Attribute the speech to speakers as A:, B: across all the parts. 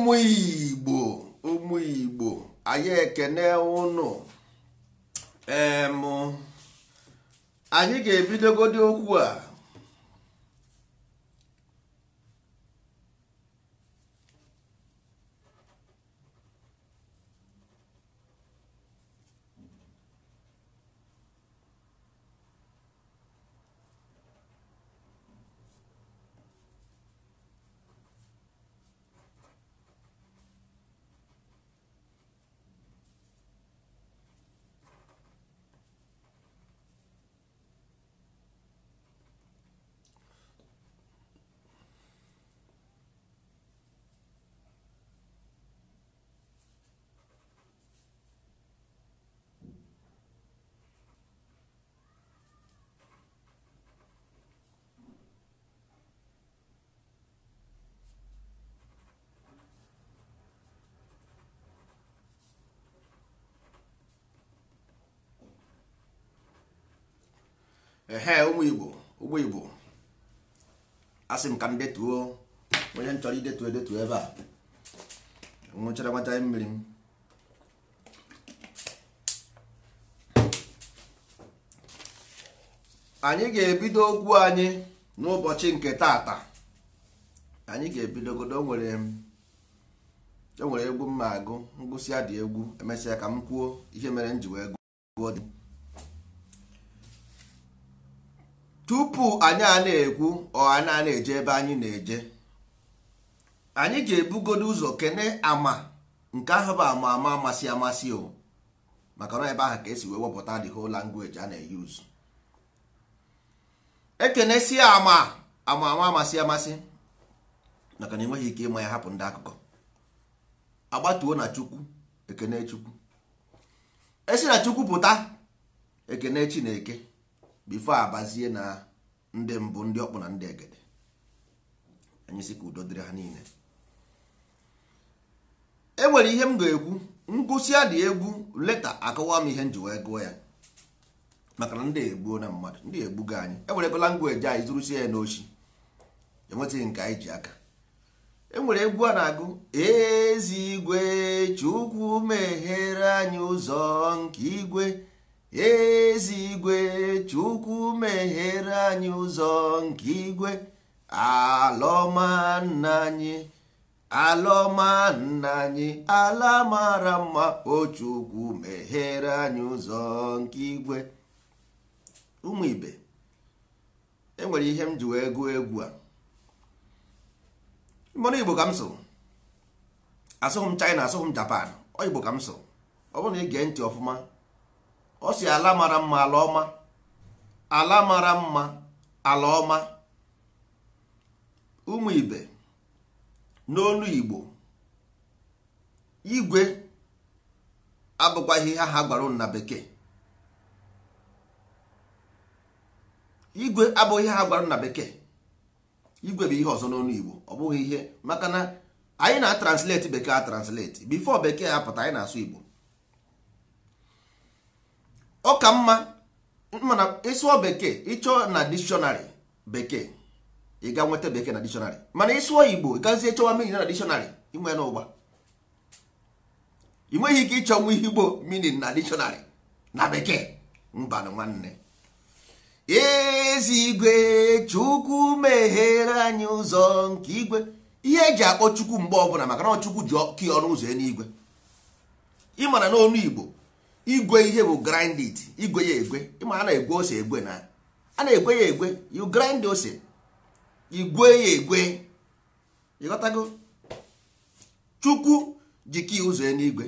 A: ụmụ igbo ụmụ igbo anyị ekene ụnụ em anyị ga-ebidogodi okwu a ehe ụmụ igbo ụgbọ igbo asị m ka m detuo onye m chọrọ idetu edetu ebe a nwụchara nwata mmiri m anyị ga-ebido okwu anyị n'ụbọchị nke taata anyị ga ebido godo nwere enwere egwu mma agụ ngụsịa dị egwu emesịa ka m kwuo ihe mere m ji wee gụọ tupu anyị a na-ekwu ọ anyị na-eje ebe anyị na-eje anyị ga-ebugodo ụzọ kene ama nke ahụ bụ ama ama amasị amasị o maka na ebe ahụ ka esi wee wepụta the whole language a na-eyuzu ekenesie ama ama ama amasị amasị maka na enweghị ike ịma ya hapụ ndị akụkọ agbatuo na chukwu ekene chukwu esi na chukwu pụta ekene chineke bifo abazie na ndị mbụ ndị ọkpụ na ndị egede anyị sị ka udo dịrị ha niile e nwere ihe m ga-ekwu ngụsịa dị egwu leta akọwa m ihe m ji wee gụọ ya maka na ndị egbuo na mmadụ ndị egbugo anyị enwere ebe langweji anyị zụrụsie ya n'ochi enwetaghị nke anyị ji aka enwere egwu a na-agụ ezi igwe chukwu meghere anyị ụzọ nke igwe ezigwe chukwu meghere anyị ụzọ nke igwe alọma nna anyị alọma nna anyị ala mara mma o chukwu meghere anyị ụzọ nke igwe ụmụ ibe enwere ihe m ji wee gụọ egwu a mmanụ igbo ka m so asụghị m china asụghị japan ọ igbo ka m so ọ bụrụ na ị gee ntị ọfụma ọ si ala mara mma ala ọma ala mara mma ala ọma ụmụ ibe n'olu igbo igwe abụkwaghị ihe ha bekee igwe abụghị ihe ha gwara na bekee igwe bụ ihe ọzọ n'olu igbo ọ bụghị ihe maka na anyị na-atranslate bekee translate bifo bekee apụta anyị na-asụ igbo ọ ka mma mana ịsụọ bekee ịchọ na dictionary bekee ị ga nweta bekee na dictionary mana ịsụọ igbo gazie chọwa meaning na dictionary inwe n'ụgba ị nweghị ike ịchọ nwa igbo meaning na dictionary na bekee mba nwanne ezigwe chukwu meghere anyị ụzọ nke igwe ihe eji akpọ chukwu mgbe ọbụla maka na chukwu ji ọkụ ọnụ ụzọ eluigwe ị mara n'ọnụ igbo igwe ihe bụ grind it igwe ya egwe ịma a na-egwe ose egwe na a egwe ya egwe you grind ose igwe ya egwe ịghọtago chukwu jiki ụzọ ya n'igwe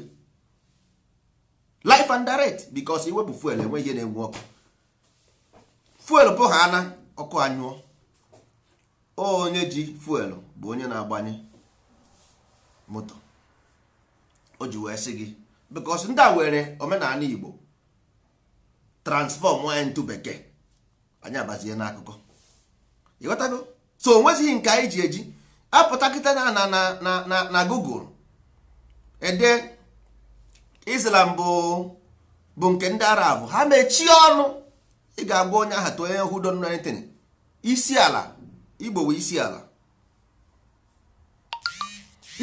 A: life and direct because iwepụ fuel enwe ihe na-enwe ọkụ fuel bụ ha ana ọkụ anyụọ onye ji fuel bụ onye na-agbanye moto o ji wee sị gị because ndị a were omenala Igbo transform into bekee anyị abazie n'akụkọ ịghọtago so onwezighị nke anyị ji eji apụta kịta na na na na Google ede Islam bụ bụ nke ndị Arab ha mechie ọnụ ị ga-agwa onye aha tụ onye hụ don isi ala Igbo bụ isi ala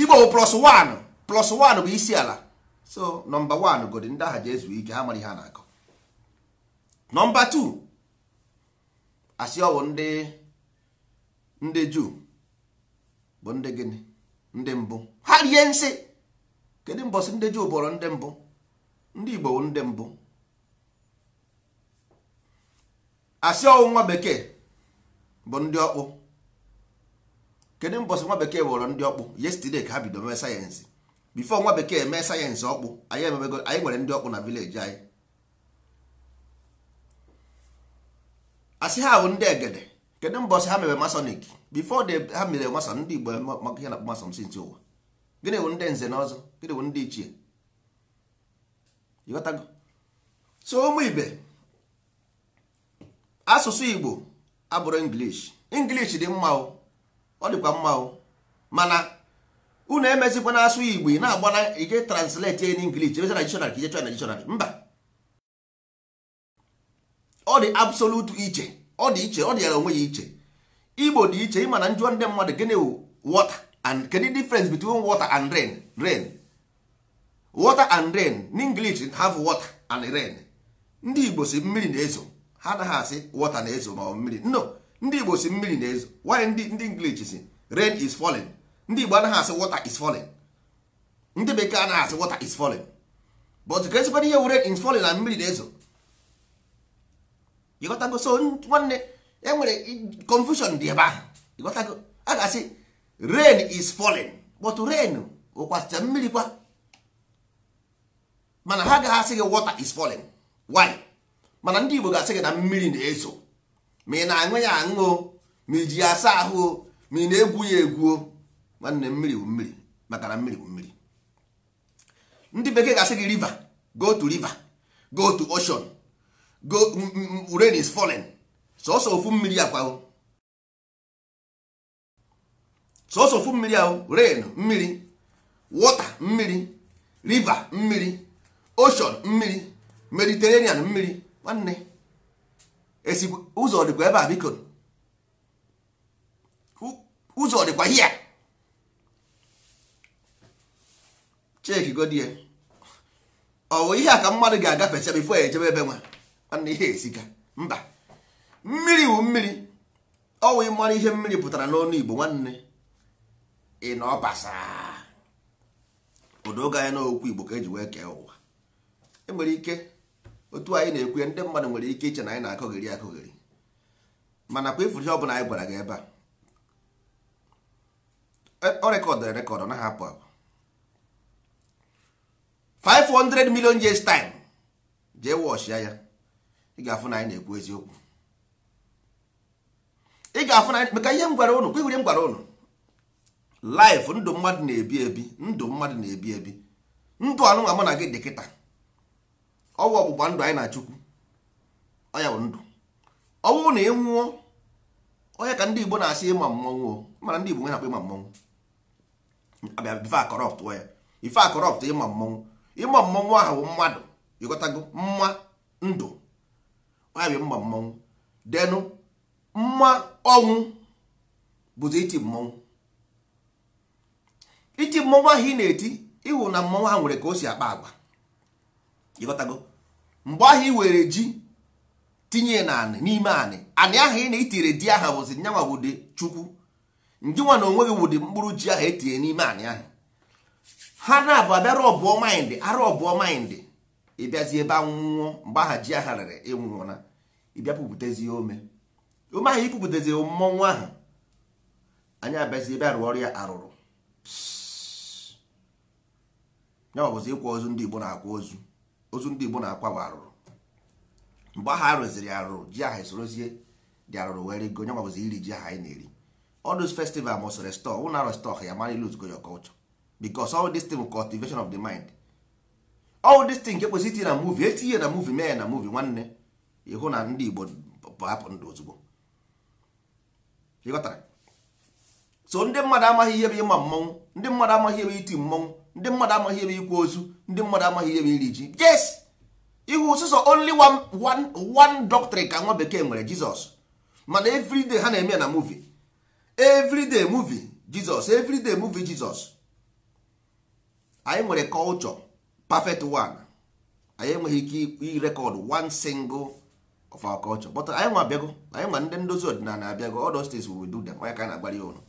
A: Igbo bụ plus one plus one bụ isi ala so nọmba one godi ndị aha ji ezu ike ha mara ihe a na-akọ nọmba two asị ọwụ ndị ndị juu bụ ndị gịnị ndị mbụ ha rie nsị kedu mbọsị ndị juu bụrụ ndị mbụ ndị igbo bụ ndị mbụ asị ọwụ nwa bekee bụ ndị ọkpụ kedu mbọsị nwa bekee bụrụ ndị ọkpụ yesterday ka ha bido mee sayensị bifo nwa bekee mee sayensị ọkpụ anyị ememego anyị nwere ndị ọkpụ na vileji anyị asị ha bụ ndị egede kedu mbọsị ha mere masonik bifo ha mere mason ndị igbo maka ihe na-akpọ mason sinti ụwa gịnị bụ ndị nze na ọzọ gịnị bụ ndị ichie ịghọtago so ụmụ ibe asụsụ igbo abụrụ english english dị mma ọ dịkwa mma mana unu emezikwa na asụ igbo na agbara ije translate in English emezi na dictionary ka ije chọọ na mba ọ dị absolute iche ọ dị iche ọ dị yara onwe ya iche igbo dị iche ịma na njụọ ndị mmadụ gịnị wụ water and kedu difference between water and rain rain water and rain in English have water and rain ndị igbo si mmiri na-ezo ha anaghị asị water na-ezo ma ọ mmiri no ndị igbo si mmiri na-ezo why ndị English si rain is falling ndị Igbo anaghị asị water is falling ndị bekee anaghị asị water is falling but ka esikwana ihe were is falling na mmiri na-ezo ịghọtago so nwanne e nwere confusion dị ebe ahụ ịghọtago a ga-asị rain is falling but rain ụkwasịcha mmiri kwa mana ha agaghị asị gị water is falling why mana ndị Igbo ga-asị gị na mmiri na-ezo ma ị na-aṅụ ya aṅụ ma iji asa ahụ ma ị na-egwu ya egwu nwanne mmiri bụ mmiri maka na mmiri bụ mmiri ndị bekee ga-asị gị river go to river go to ocean go rain is falling sọsọ ofu mmiri akwa sọsọ ofu mmiri ahụ rain mmiri water mmiri river mmiri ocean mmiri mediterenian mmiri nwanne esi ụzọ dịkwa ebe a biko ụzọ dịkwa hia cheki godie ọwụ ihe a ka mmadụ ga agafe bifo ya ejebe ebe nwa nwanne ihe esiga mba mmiri wụ mmiri ọwụ ịmara ihe mmiri pụtara n'ọnụ Igbo nwanne ị na ọbasa ụdọ oge anyị n'okwu Igbo ka eji wee kee ụwa enwere ike otu anyị na-ekwu ndị mmadụ nwere ike iche na anyị na-akọgheri akọgheri mana kwa ifuru ihe ọbụla anyị gwara gị ebe a e, ọ rekọdụ rekọdụ na apụ apụ 500 million years time jee wọchịa ya ị ga-afụ na anyị na-ekwu eziokwu ị ga-afụ na anyị maka ihe m gwara ụnụ kwigwere m gwara ụnụ laif ndụ mmadụ na-ebi ebi ndụ mmadụ na-ebi ebi ndụ anụnwa mụ na gị dị kịta ọwụ ọgbụgba ndụ anyị na chukwu ọya bụ ndụ ọwụ na ị nwụọ onye ka ndị igbo na-asị ịma mmọnwụ mana ndị igbo nwe na-akpọ ịma mmọnwụ abịa ife akọrọptụ ya ife akọrọptụ ịma mmọnwụ ịgba mmọnwụ ahụ mmadụ ịghọtago mma ndụ ọyabụ mma mmọnwụ denụ mma ọnwụ bụzi iti mmọnwụ iti mmọnwụ ahụ ị na-eti ịhụ na mmọnwụ ahụ nwere ka o si akpa agwa ịghọtago mgbe ahụ ị were ji tinye n'ime anị anị ahụ ị na-itire di aha bụzi nyanwa wụde chukwu nwa na onwe gị mkpụrụ ji ahụ etinye n'ime anị ahụ ha na-abụ abịa rọbụọ maịndị arọbụọ maịndị ịbịazi ebe anwụọ mgbe aha ji aha rere ịnwụọ na ịbịa pụpụtezi ome ome ahụ ịpụpụtezi mmọnwụ ahụ anyị abịazi ebe arụ ọrịa arụrụ ya ọbụzi ịkwa ozu ndị Igbo na-akwa ozu ozu ndị Igbo na-akwa bụ arụrụ mgbe aha rụziri arụrụ ji aha esorozie dị arụrụ were go nya ọbụzi iri ji aha anyị na-eri all those festival must restore ụna restore ya mara lose go your culture because all this thing bụ cultivation of the mind all this thing ekwesị itinye na movie etinye na movie mee na movie nwanne ịhụ na ndị Igbo hapụ ndụ ozugbo so ndị mmadụ amaghị ihe bụ ịma mmọnwụ ndị mmadụ amaghị ebe iti mmọnwụ ndị mmadụ amaghị ebe ikwu ozu ndị mmadụ amaghị ebe iri ji yes ihu sụsọ only one, one, one doctrine ka nwa bekee nwere Jizọs mana everyday ha na-eme na movie everyday movie Jizọs everyday movie Jizọs anyị nwere culture perfect one anyị enweghị ike irekọd one single of our culture but anyị nwa abịago anyị nwa ndị ndozi ọdịnala abịago all those things we will do them onye ka na-agbara ya ụlọ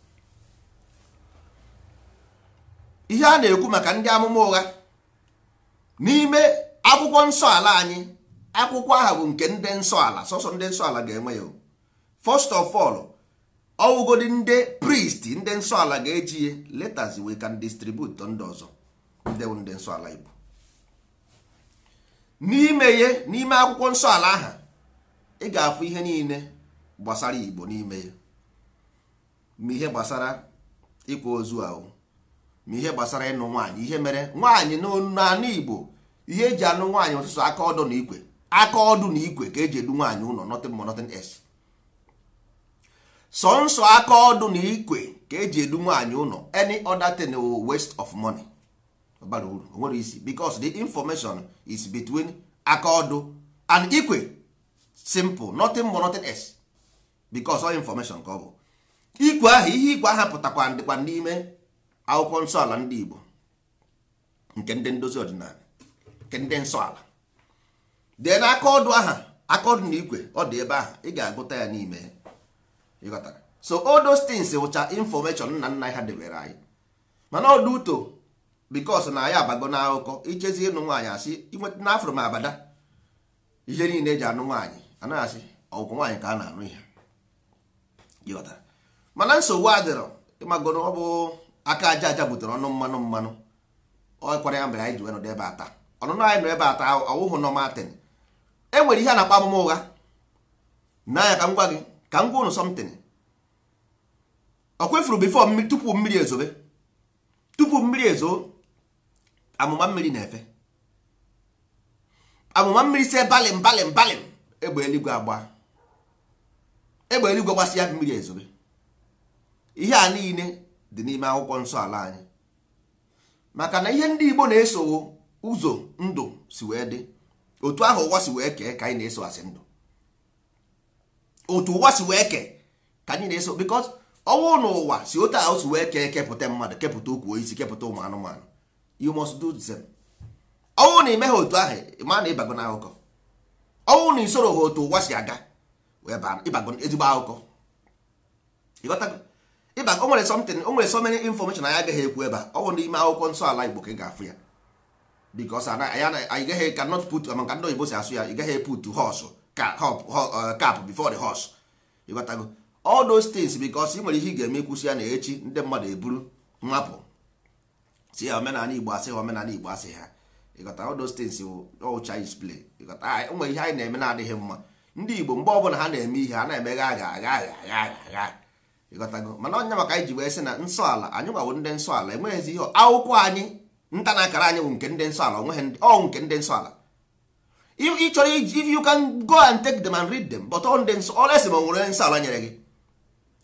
A: ihe a na-ekwu maka ndị amụma ụgha n'ime akwụkwọ nsọ ala anyị akwụkwọ aha bụ nke ndị nsọ ala sọsọ ndị nsọ ala ga-enwe ya first of all ọwụgodi ndị priest ndị nsọ ala ga-eji letters we can distribute ndị ọzọ ndị wụ ndị nsọ ala n'ime ye n'ime akwụkwọ nsọ ala aha ị ga-afụ ihe niile gbasara Igbo n'ime ya ma ihe gbasara ịkwa ozu ahụ ma ihe gbasara ịnụ nwaanyị ihe mere nwaanyị n'anụ Igbo ihe eji anụ nwaanyị ọtụtụ aka ọdụ na ikwe aka ọdụ na ikwe ka eji edu nwaanyị ụlọ nothing more nothing else sọnsọ aka ọdụ na ikwe ka eji edu nwaanyị ụlọ any other thing oh, waste of money bara uru onwere isi because the information is between aka ọdụ and ikwe simple nothing more nothing else because all information ka ọ bụ ikwe ahụ ihe ikwe ahụ pụtakwa ndịkwa n'ime akwụkwọ nsọ ala ndị Igbo nke ndị ndozi ọdịnala nke ndị nsọ ala dee na aka ọdụ aha aka ọdụ na ikwe ọ dị ebe ahụ ị ga-agụta ya n'ime ịghọtara so all those things wụcha information nna nna ha debere anyị mana ọdụ uto bikos na ya abago na akụkọ ichezi ịnụ nwaanyị asị na n'afro m abada ihe niile eji anụ nwaanyị anaghị asị ọgwụkwọ nwaanyị ka a na-anụ ihe mana nsogbu adịrọ ịmagoro ọ bụ aka aja aja butere ọnụ mmanụ mmanụ ọkwara ya mere anyị ji wenụ ebe ata ọnụnụ anyị nọ ebe ata ọwụhụ nọ matin e nwere ihe a na-akpa amụma ụgha n'anya ka m gwa gị ka m gwa ụnụ sọmtin ọ kwefuru bifo tupu mmiri ezobe tupu mmiri ezo amụma mmiri na-efe amụma mmiri si balim balim balim egbe eluigwe agba egbe eluigwe gbasịa mmiri ezobe ihe a niile dị n'ime akwụkwọ nsọ ala anyị maka na ihe ndị Igbo na-eso ụzọ ndụ si wee dị otu ahụ ụwa si wee kee ka anyị na-eso asị ndụ otu ụwa si wee kee ka anyị na-eso because ọnwụ na ụwa si otu ahụ si wee kee kepụta mmadụ kepụta ukwu isi kepụta ụmụ anụmanụ you must do them ọnwụ na ime ha otu ahụ ma na ịbago na akụkọ ọnwụ na isoro ha otu ụwa si aga ịbago ezigbo akụkọ ịbago nwere something o nwere so many information anyị agaghị ekwu ebe a ọnwụ n'ime akwụkwọ nsọ ala igbo ka ị ga-afụ ya because anyị gaghị cannot put maka ndị oyibo si asụ ya ị gaghị put horse cap uh, before the horse ịghọtago all those things because ị nwere ihe ị ga-eme kwụsị ya na echi ndị mmadụ eburu mmapụ si ya omenala igbo asị ha omenala igbo asị ha ịghọta all those things all Chinese play ịghọta ah, ụmụ ihe anyị na-eme na-adịghị mma ndị igbo mgbe ọbụla ha na-eme ihe a na-emegha agha agha agha agha agha ịghọtago mana onye maka anyị ji wee sị na nsọ ala anyị gbawo ndị nsọ ala enweghịzi ihe akwụkwọ anyị nta na akara anyị nke ndị nsọ ala onweghị ọ nke ndị nsọ ala ị chọrọ if you can go and take them and read them but ọ ndị nsọ ọla esi ma nwere nsọ ala nyere gị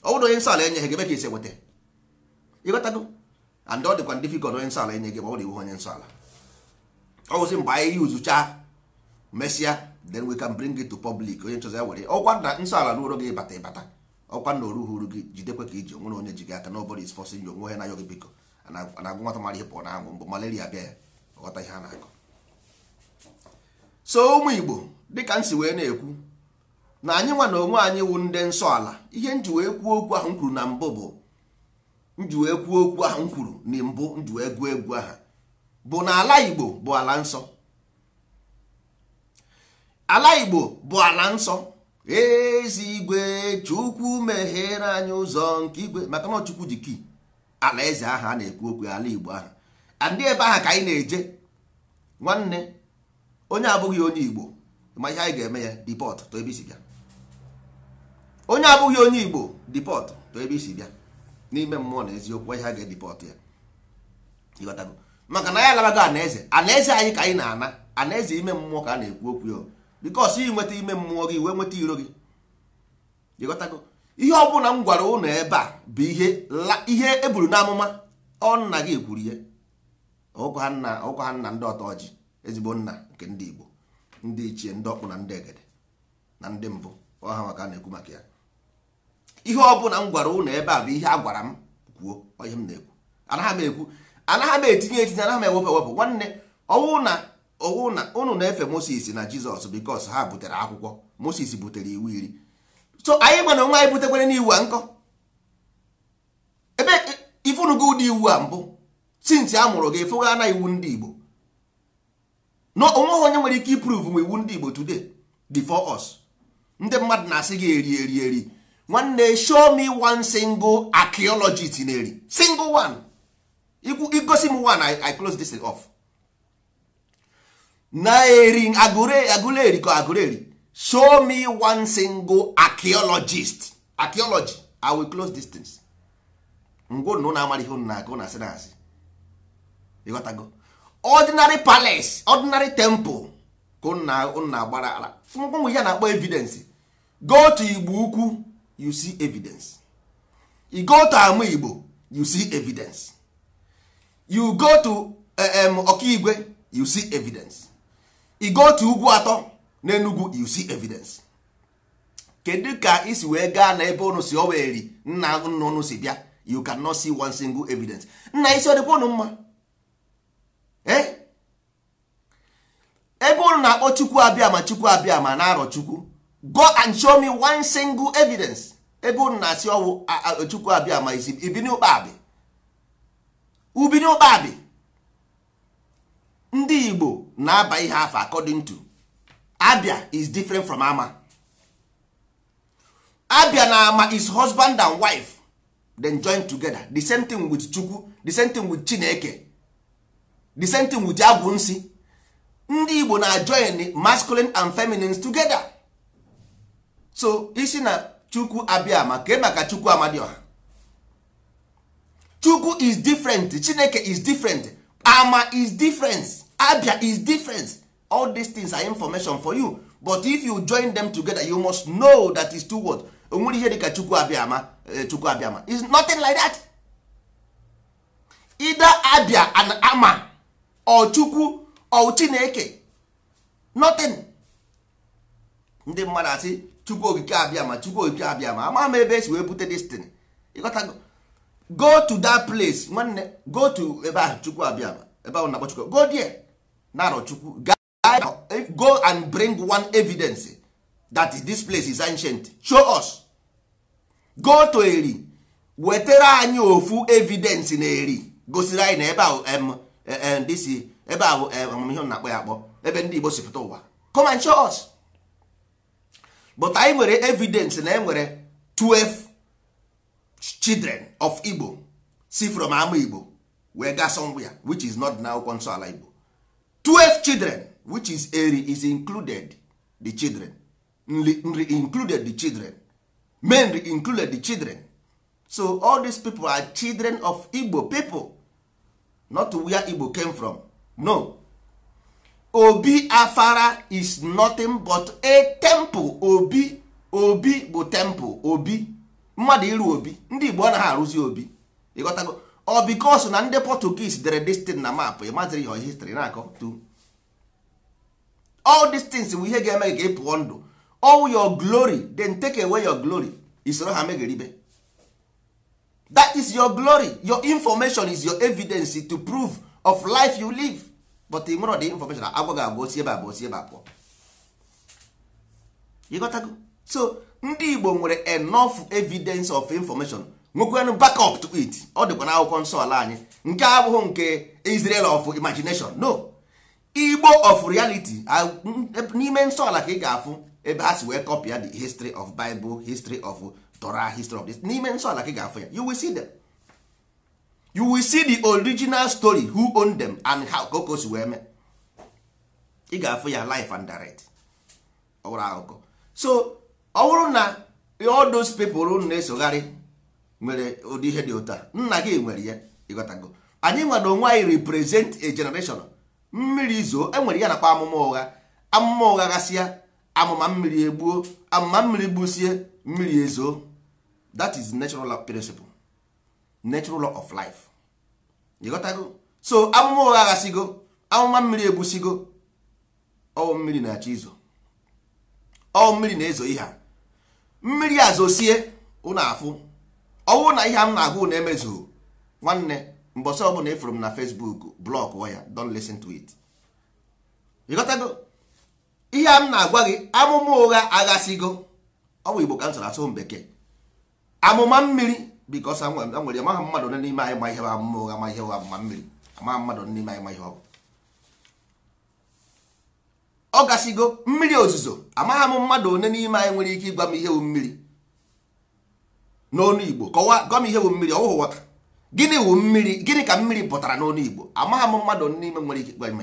A: ọ bụrụ onye nsọ ala enyeghị gị ebe isi nweta ịghọtago and ọ dịkwa difficult onye nsọ ala enye gị ma ọ dị onye nsọ ala ọ wụzi mgbe anyị yuzucha mesịa then we can bring it to public onye nchọzi ya were ọkwa na nsọ ala n'ụlọ gị ịbata ịbata ọkwa na oru huru gị jidekwa ka iji onwere onye ji gị aka nobody is forcing you onwe ha na-ayọ gị biko na-agụ nwata mara ihe pụọ na anwụ mbụ malaria bịa ya ghọta ihe a na-akọ so ụmụ igbo dịka m si wee na-ekwu na anyị nwa na onwe anyị wụ ndị nsọ ala ihe nji wee kwuo okwu ahụ m kwuru na mbụ bụ nju wee okwu ahụ m kwuru na mbụ nji egwu egwu aha bụ na ala Igbo bụ ala nsọ ala Igbo bụ ala nsọ igwe Chukwu meghere anyị ụzọ nke igwe maka na Chukwu ji kii, ala eze aha a na-ekwu okwu ala Igbo aha andị ebe aha ka anyị na-eje nwanne onye abụghị onye Igbo ma ihe anyị ga-eme ya dipọt to ebe isi bịa onye abụghị onye Igbo dipọt to ebe isi bịa n'ime mmụọ na eziokwu ihe a ga-edipọt ya maka na ya alabago anaeze anaeze anyị ka anyị na-ana anaeze ime mmụọ ka a na-ekwu okwu ya bikos ị nweta ime mmụọ gị wee nweta iro gị ịghọtago ihe ọ bụla m gwara ụnụ ebe a bụ ihe e buru n'amụma ọ nna gị kwuru ya ọkwa ha nna ndị ọtọ ezigbo nna nke ndị Igbo ndị ichie ndị ọkpụ na ndị egede na ndị mbụ ọha maka a na-ekwu maka ya ihe ọ bụla m gwara ụnụ ebe a bụ ihe a gwara m kwuo ihe m na-ekwu anaghị m ekwu anaghị m etinye etinye anaghị m ewepụ ewepụ nwanne ọwụ na ọwụ na ụnụ na-efe Moses na Jizọs bikos ha butere akwụkwọ Moses butere iwu iri so anyị mana onwe anyị butekwere n'iwu a nkọ ebe ifunugo ụdị iwu a mbụ sinti a mụrụ gị na iwu ndị Igbo na onweghị onye nwere ike iprove m iwu ndị Igbo today before us ndị mmadụ na-asị gị eri eri eri nwanne show me one single archaeologist na-eri single one igosi m one I, close this off na-eri eri ka eri show me one single archaeologist archaeology I will close this things ngwụnụ na-amara ihe ụnụ na-akụ na asị na asị ịghọtago ordinary palace ordinary temple ka ụnụ na-agbara ala ngwụnwe ya na-akpọ evidence go to igbo ukwu you see evidence you go to ama igbo you see evidence you go to um, eh, ọkaigwe you see evidence you go to ugwu atọ n'enugwu you see evidence kedu ka isi wee gaa na ebe ụnụ si oweri nna nna ụnụ si bịa you can not see one single evidence nna isi ọdịkwa ụnụ mma eh? ebe ụnụ na-akpọ chukwu abịa ma chukwu abịa ma na-arọ chukwu go and show me one single evidence ebe unu na-asị ọwụ chukwu abịa ma isi ibini ụkpabi ubini ụkpabi ndị igbo na-aba ihe afọ according to abia is different from ama abia na ama is husband and wife then join together the same thing with chukwu the same thing with chineke the same thing with agwụ nsi ndị igbo na join masculine and feminine together so isi na chukwu abịa ma ka e maka chukwu amadioha chukwu is different chineke is different ama is different abia is different all these things are information for you but if you join them together you must know that is two words onwere ihe dịka chukwu abịama eh, chukwu ama is nothing like that either abia and ama or chukwu or chineke nothing ndị mmadụ asị chukwu okike abịa ma chukwu okike abịa ma ama m ebe esi wee bute destin ịghọtago go to that place nwanne go to ebe ahụ chukwu abịa ma ebe ahụ na-akpọ chukwu go there narọ chukwu go and bring one evidence that this place is ancient show us go to eri wetara anyị ofu evidence na eri gosiri anyị na ebe ahụ disi ebe ahụ amamihe na-akpọ ya akpọ ebe ndị Igbo sipụta ụwa come and show us. but anyị nwere evidence na e nwere 12 children of igbo si from ama igbo wee ga somewhere which is not na akwụkwọ nsọ ala igbo 12 children which is eri is included the children nri included the children men included the children so all these people are children of igbo people not where igbo came from no obi afara is nothing but a temple obi obi bụ temple obi mmadụ iru obi ndị igbo na arụzi obi ịghọtago ọ bikos na ndị portuguese dere destin na map ịmaziri your history na-akọ tu all these things bụ ihe ga-eme ka pụọ ndụ all your glory then take away your glory isoro ha ribe that is your glory your information is your evidence to prove of life you live but ị nwere ọdị infọmeshọn agwa ga agwa osi ebe a bụ osi ebe a pụọ ịghọtago so ndị igbo nwere enough evidence of information nwekwanụ backup to it ọ dịkwa na akwụkwọ nsọ ala anyị nke abụghị nke Israel of imagination no igbo of reality n'ime nsọ ala ka ị ga-afụ ebe ha si wee kọpịa the history of Bible history of Torah history of this n'ime nsọ ala ka ị ga-afụ ya you will see them. you will see the original story who owned them and how koko si wee ị ga-afụ ya life and direct ọwụrụ akụkọ so ọ bụrụ na all those people unu na-esogharị nwere ụdị ihe dị ụtọ nna gị nwere ya ịghọtago anyị nwere onwe anyị represent a generation mmiri zoo enwere ya nakwa amụma ụgha amụma ụgha gasịa amụma mmiri egbuo amụma mmiri gbusie mmiri ezo that is natural principle natural law of life ịghọtago so amụma ụgha aghasigo amụma mmiri egbusigo ọwụ mmiri na-achọ izo ọwụ mmiri na-ezo ihe a mmiri a zosie ụna afụ ọwụ na ihe m na-agụ na-emezughị nwanne mbọsị ọbụla ịfụrụ m na Facebook blọk ya don listen to it ịghọtago ihe a m na-agwa gị amụma ụgha aghasigo ọ Igbo ka m asụ bekee amụma mmiri bikos a nwere amaghị mmadụ onye n'ime anyị ma ihe ba mma ụgha ma ihe ụgha ma mmiri amaghị mmadụ onye n'ime anyị ma ihe ọ bụ ọ gasịgo mmiri ozuzo amaghị m mmadụ one n'ime anyị nwere ike ịgwa m ihe bụ mmiri n'onu igbo kọwaa gwa m ihe bụ mmiri ọ wụghị wata gịnị wụ mmiri gịnị ka mmiri pụtara n'onu igbo amaghị m mmadụ onye n'ime nwere ike ịgwa m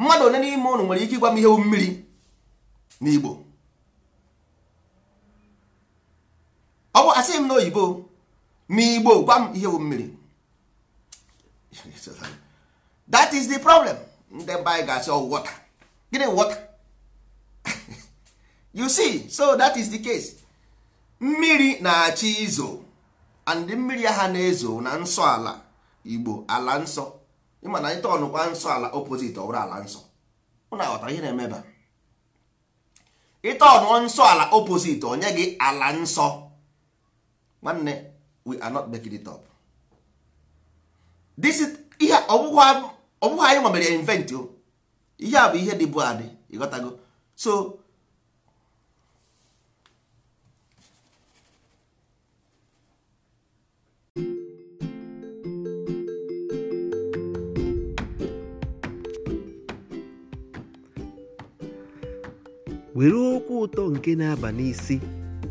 A: mmadụ one n'ime ụnụ nwere ike ịgwa m ihe bụ mmiri n'igbo ọ bụ asị m n'oyibo Igbo gwa m ihe bụ mmiri that is the problem ndị mba anyị ga-asị ọ oh, water gịnị wọta? you see so that is the case mmiri na-achị izo and mmiri ha na-ezo na nsọ ala igbo ala nsọ ịma na ịta tọnụkwa nsọ ala opposite ọ bụrụ ala nsọ ụna aghọtara ihe na-emeba ịtọnụọ nsọ ala opposite onye gị ala nsọ nwanne we are not making it up this is ihe ọbụghị anyị nwa mere invent o oh. ihe a bụ ihe dị adị ịghọtago so
B: were okwu ụtọ nke na-aba n'isi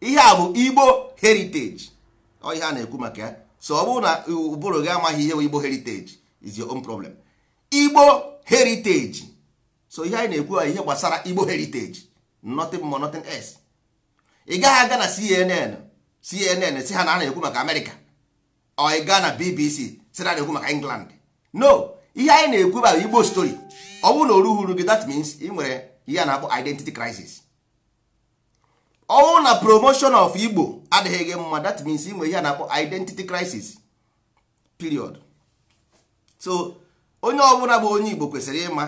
A: ihe a bụ igbo heritage ọ ihe a na-ekwu maka ya so ọ bụrụ na ụbụrụ gị amaghị ihe bụ igbo heritage is your own problem igbo heritage so ihe anyị na-ekwu ihe gbasara igbo heritage nothing more nothing else ị gaghị aga na cnn cnn si ha na a na-ekwu maka amerịka ọ ị gaa na bbc si na na-ekwu maka england no ihe anyị na-ekwu bụ igbo story ọ bụrụ na o gị that means ị nwere ihe a na-akpọ identity crisis ọnwụ na promotion of igbo adịghị gị mma that means inwe ihe a na-akpọ identity crisis period so onye ọbụla bụ onye igbo kwesịrị ịma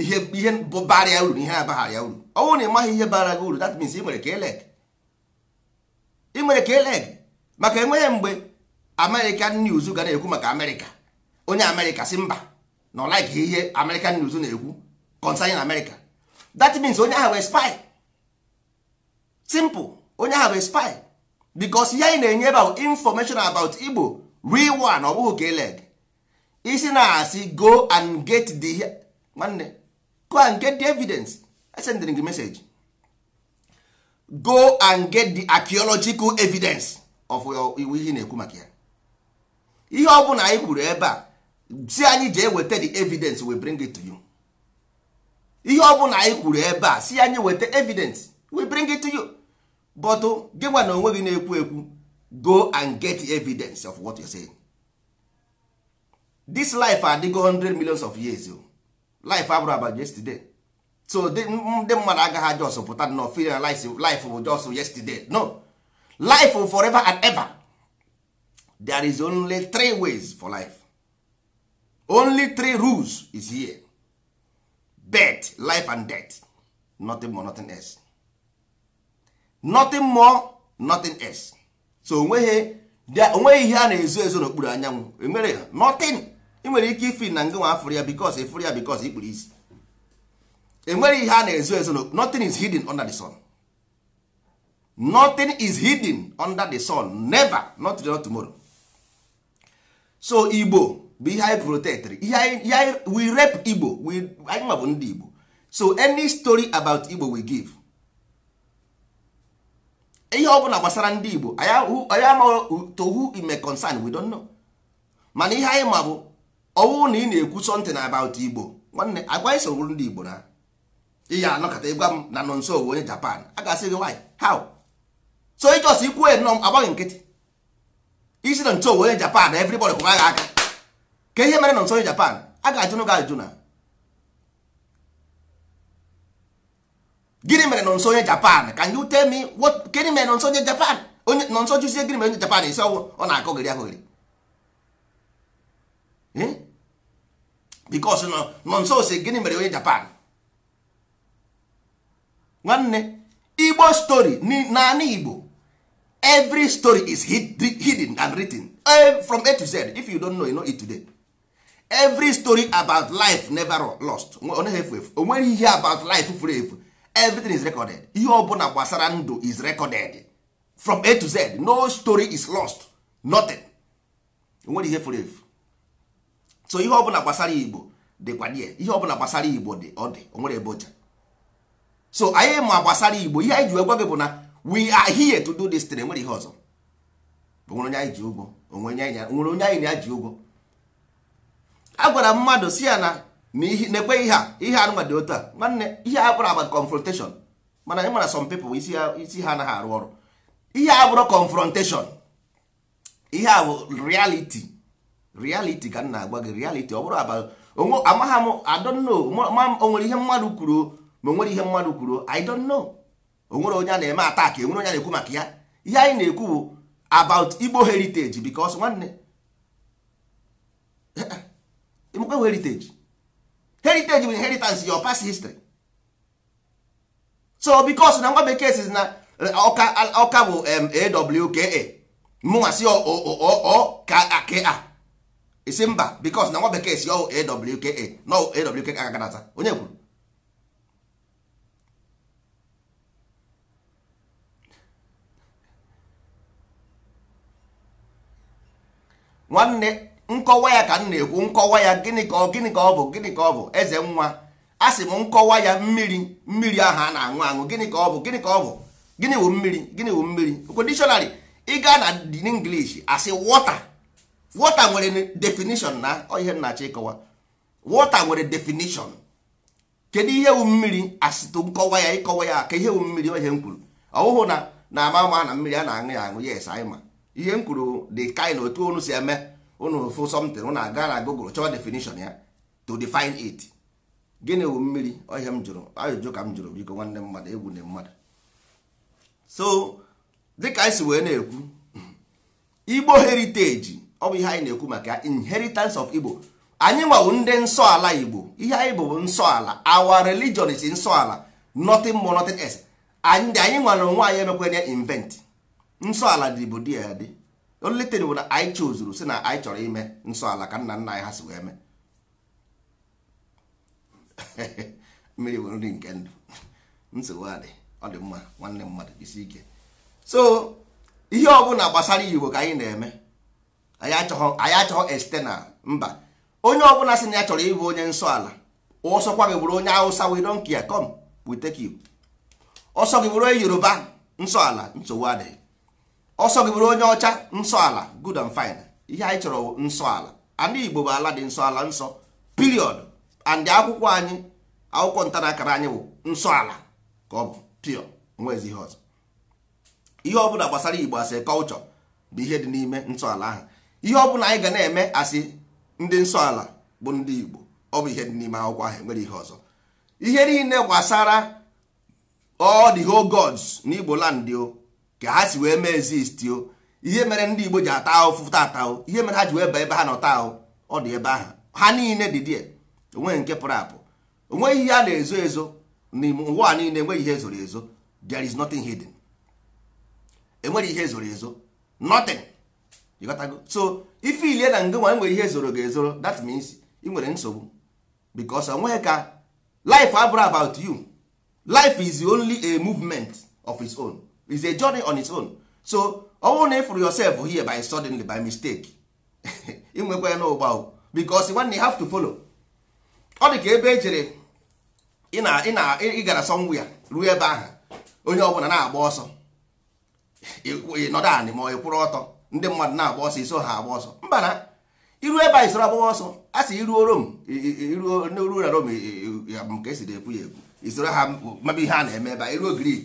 A: ihe ihe bara ya uru na ihe abaghara ya uru ọnwụ na ịmaghị ihe bara gị uru that means ị nwere ka eleg ị nwere ka eleg maka enweghị mgbe american news ga na-ekwu maka amerịka onye amerịka si mba na ọ like ihe american news na-ekwu concerning america that means onye ahụ wee spy simple onye ahụ bụ spy because ya ị na-enye ebe information about igbo real one ọ bụghị ka isi na-asị go and get the go and get the evidence go and get the archaeological evidence of iwu ihe na-ekwu ihe ọ bụla anyị kwuru ebe a si anyị jee weta the evidence we ebe a si bring it to you but gị gwa na onwe gị na-ekwu ekwu go and get evidence of what you're saying. this life adịgo 100 millions of years o oh. life abụrụ about yesterday so ndị mmadụ agaghị just pụta nọ feel life life bụ just yesterday no life forever and ever there is only three ways for life only three rules is here birth life and death nothing more nothing else nothing more nothing else so onweghị onweghị ihe a na-ezo ezo n'okpuru anyanwụ emere nothing ị nwere ike ifi na ngị nwa afụrụ ya bikos ịfụrụ e ya bikos ikpuru isi enwere ihe a na-ezo ezo nothing is hidden under the sun nothing is hidden under the sun never not today not tomorrow so igbo bụ ihe anyị protektịrị ihe anyị we rep igbo anyị nwa bụ ndị igbo so any story about igbo we give ihe ọ bụla gbasara ndị Igbo anyị amaghị to who it may concern we don't know mana ihe anyị ma bụ ọwụ na ị na-ekwu something about Igbo nwanne agwa isogbu ndị Igbo na ihe anọkọta ịgwa m na nọ nso owu onye Japan a ga-asị gị why how so ịjọs ikwu ya nọ agbaghị nkịtị isi nọ nso owu onye Japan everybody kwụrụ agha aka ka ihe mere nọ nso onye Japan a ga-ajụnụ gị ajụjụ na gịnị mere nọ nso onye japan can you tell me what gịnị mere nọ nso onye japan onye nọ nso jụzie gịnị mere onye japan isi ọnwụ ọ na-akọgịrị akọgịrị eh? bikos nọ nso si gịnị mere onye japan nwanne igbo story naanị igbo every story is hidden and written eh, from a to z if you don't know you know it today every story about life never lost ọ efu efu o ihe about life furu efu everything is recorded ihe ọbụla gbasara ndụ is recorded from a to z no story is lost nothing nwere ihe furu efu so ihe ọbụla gbasara igbo dịkwa die ihe ọbụla gbasara igbo dị ọ dị onwere ebe ọcha so anyị ma gbasara igbo ihe anyị ji gwa gị bụ na we are here to do this thing enwere ihe ọzọ onwere onye anyị ji ụgwọ onwere onye anyị na-aji ụgwọ a gwara mmadụ si ya na na na-ekweghị ihe a ihe anụnwa dị otu a nwanne ihe a bụrụ agba confrontation mana ị mara some people isi ha anaghị arụ ọrụ ihe a bụrụ confrontation ihe a bụ reality reality ka m na-agwa gị reality ọ bụrụ aba amaghị m I don't o nwere ihe mmadụ kwuru ma onwere ihe mmadụ kwuru I don't know onwere onye a na-eme attack e nwere onye na-ekwu maka ya ihe anyị na-ekwu bụ about Igbo heritage because nwanne Igbo heritage heritage bụ inheritance your past history so because na nwa bekee si na ọka eh, ọka bụ awka mụnwa si ọka isi mba because na nwa bekee si ọ awka na awka agagadata onye kwuru nwanne nkọwa ya ka m na-ekwu nkọwa ya gịnị ka ọ gịnị ka ọ bụ gịnị ka ọ bụ eze nwa a sị m nkọwa ya mmiri mmiri ahụ a na-aṅụ aṅụ gịnị ka ọ bụ gịnị ka ọ bụ gịnị wụ mmiri gịnị wụ mmiri okwu dictionary ị gaa na English asị water wọta nwere definition na ihe nnachi ịkọwa wọta nwere definition kedu ihe wụ mmiri asịtụ nkọwa ya ịkọwa ya ka ihe wụ mmiri ihe m kwuru ọhụhụ na na ama ama na mmiri a na-aṅụ ya aṅụ yes anyị ma ihe m kwuru dị kaị otu onu si eme unu fụ something unu aga na google chọọ definition ya to define it gịnị wu mmiri ihe m jụrụ ajụjụ ka m jụrụ biko nwanne mmadụ egwu na mmadụ so dịka anyị si wee na-ekwu igbo heritage ọ bụ ihe anyị na-ekwu maka inheritance of igbo anyị nwawu ndị nsọ ala igbo ihe anyị bụ nsọ ala our religion is nsọ ala nothing more nothing else anyị nwere onwe anyị emekwa ya invent nsọ ala dị bụ dị ya dị only thing bụ na anyị chozuru si na anyị chọrọ ime nsọ ala ka nna nna anyị ha si wee mee mmiri bụ nri nke ndụ nsogbu adị ọ dị mma nwanne mmadụ isi ike so ihe ọbụla gbasara igbo ka anyị na-eme anyị achọghọ anyị mba onye ọbụla si na ya chọrọ ịbụ onye nsọ ala ọsọkwa gị bụrụ onye awụsa we don't care come we take you ọsọ gị bụrụ onye yoruba nsọ ala nsogbu adịghị ọsọ gị bụrụ onye ọcha nsọ ala good and fine ihe anyị chọrọ nsọ ala ana igbo bụ ala dị nsọ ala nsọ period and akwụkwọ anyị akwụkwọ nta na akara anyị bụ nsọ ala ka ọ bụ pure nwezi ihe ọzọ ihe ọbụla gbasara igbo asị culture bụ ihe dị n'ime nsọ ala ahụ ihe ọbụla anyị ga na-eme asị ndị nsọ ala bụ ndị igbo ọ bụ ihe dị n'ime akwụkwọ ahụ enwere ihe ọzọ ihe niile gbasara ọ dị ho gods n'igbo land o ka ha si wee mee exist o ihe mere ndị Igbo ji ata ahụ taata ahụ ihe mere ha ji wee baa ebe ha nọta ahụ ọ dị ebe ahụ ha niile dị die onweghị nke pụrụ apụ onweghị ihe a na-ezo ezo n'ime ụwa niile enweghị ihe zoro ezo there is nothing hidden enweghị ihe zoro ezo nothing ịghọtago so ife ilie na ngị nwa e nwere ihe zoro ga-ezoro that means ị nwere nsogbu because onweghị ka life abụrụ about you life is only a movement of its own. is a journey on its own so ọ bụrụ na ịfụrụ yourself here by suddenly by mistake inwekwa ya n'ụgba because nwanne have to follow ọ dị ka ebe ejere ị gara ya ruo ebe ahụ onye ọbụla na-agba ọsọ ịnọdụ anị ma ọ kwụrụ ọtọ ndị mmadụ na-agba ọsọ iso ha agba ọsọ mba na iru ebe anyị soro agbawa ọsọ a sị iruo rom iruo na rom ka esiri ekwu ya ekwu isoro ha mabe ihe a na-eme ebe iruo grik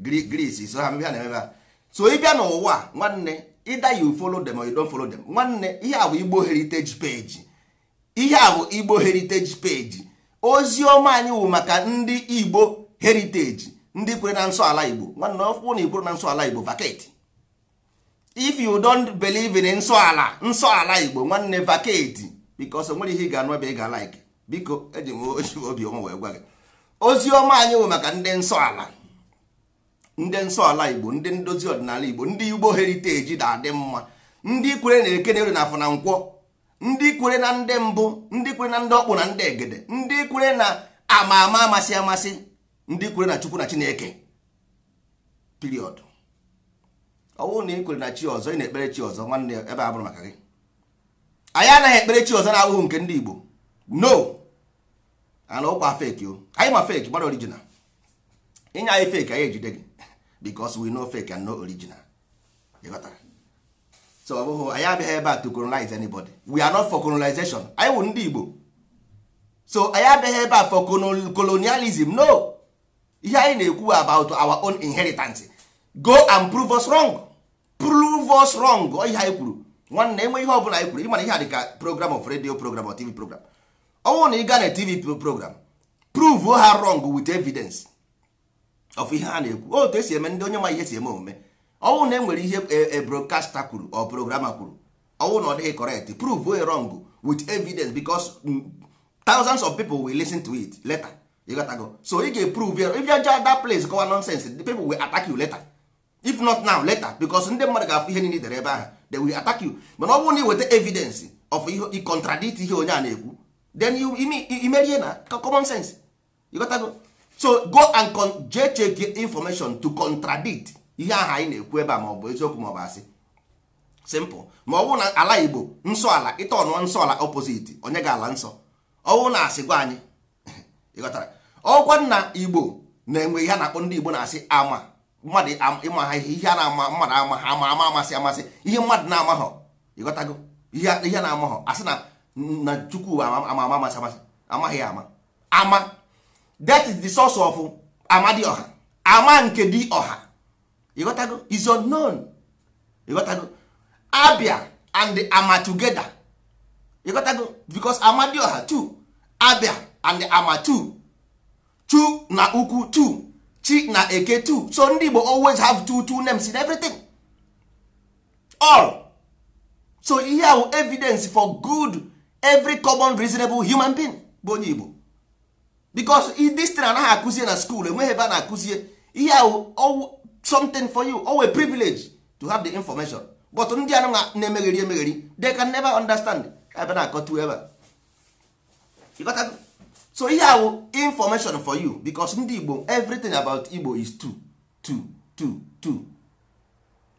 A: Greece so ha mebe na-emebe ha so ịbịa n'ụwa nwanne ịda you follow them or you don't follow them nwanne ihe a bụ Igbo heritage page ihe a bụ Igbo heritage page ozi ọma anyị wụ maka ndị Igbo heritage ndị kwere na nsọ ala Igbo nwanne ọkwụ na ikwere na nsọ ala Igbo vacate if you don't believe in nsọ ala nsọ ala Igbo nwanne vacate because nwere ihe ị ga-anụ ebe ị ga-alike biko eji m obi ọma wee gwa gị ozi ọma anyị wụ maka ndị nsọ ala ndị nsọ ala igbo ndị ndozi ọdịnala igbo ndị igbo heriteji na-adị mma ndị kwere na eke na na afọ na nkwọ ndị kwere na ndị mbụ ndị kwere na ndị ọkpụ na ndị egede ndị kwere na ama ama amasị amasị ndị kwere na chukwu na chineke piriọd ọ bụrụ na ị kwere na chi ọzọ ị na-ekpere chi ọzọ nwanne ebe a bụrụ maka gị anyị anaghị ekpere chi ọzọ na-abụghị nke ndị igbo no ana ụkwa feki o anyị ma feki gbara orijinal ịnye anyị feki anyị ejide gị because we no fake and no original so ọ bụghị anyị abịaghị ebe a to colonize anybody we are not for colonization anyị wụ ndị Igbo so anyị abịaghị ebe a for colonialism no ihe anyị na-ekwu about our own inheritance go and prove us wrong prove us wrong ihe anyị kwuru nwanne enwe ihe ọbụla anyị kwuru ịmana ihe a dị ka program of radio program or tv program ọ bụrụ na ị gaa na tv program prove ha wrong with evidence ọfụ ihe a na-ekwu otu esi eme ndị onye ma ihe si eme omume ọnwụ na enwere ihe e, e broadcaster kwuru ọ programa kwuru ọnwụ na ọ dịghị correct prove wrong with evidence because mm, thousands of people will listen to it later ịghọtago so ị ga-eprove if you judge that place kọwa nonsense the people will attack you later if not now later because ndị mmadụ ga-afụ ihe niile dere ebe ahụ they will attack you mana ọ bụrụ na ị weta evidence of ị contradict ihe onye a na-ekwu then imerie na common sense ịghọtago so go and con check information to contradict ihe ahụ anyị na-ekwu ebe a ma ọ bụ eziokwu ma ọ bụ asị simple ma ọ bụrụ na ala igbo nsọ ala ịta ọnụọ nsọ ala opposite onye ga ala nsọ ọ bụrụ na asị gwa anyị ịghọtara ọkwa nna igbo na-enwe ihe a na-akpọ ndị igbo na-asị ama mmadụ ịma ha ihe ihe a na-ama mmadụ ama ha ama ama amasị amasị ihe mmadụ na-amaghọ ịghọtago ihe a na-amaghọ asị na na chukwu ama ama amasị amasị amaghị ya ama ama that is the source of amadioha ama nke dị ọha is unknown ịghọtago abia and ama together ịghọtago amadi amadioha two abia and ama two chu na ukwu two chi na eke two so ndị Igbo always have two two names in everything all so ihe ahụ evidence for good every common reasonable human being bụ onye Igbo because this thing anaghị akụzie na school enweghị ebe a na-akụzie ihe ahụ something for you always privilege to have the information but ndị anụ na-emegheri emegheri they can never understand ebe na-akọtu ebe a so ihe ahụ information for you because ndị Igbo everything about Igbo is two two two two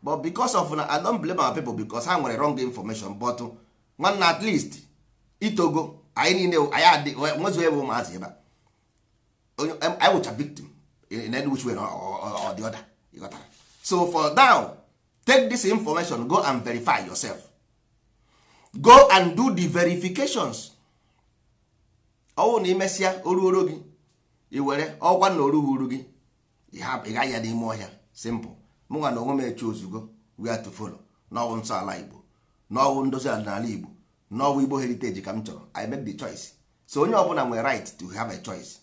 A: but because of na I don't blame our people because ha nwere wrong information but nwanne at least itogo anyị niile anyị adị ebe ụmụazị ebe a I wụcha victim in any which way or the other ịghọtara so for now take this information go and verify yourself go and do the verifications ọwụ na imesịa oruoro gị i were ọkwa na orughị uru gị ị gaghị ya n'ime ọhịa simple mụnwa na onwe m ozugbo ozugbo are to follow n'ọwụ nsọ ala Igbo n'ọwụ ndozi ọdịnala Igbo n'ọwụ Igbo heritage ka m chọrọ I make the choice so onye ọbụla nwere right to have a choice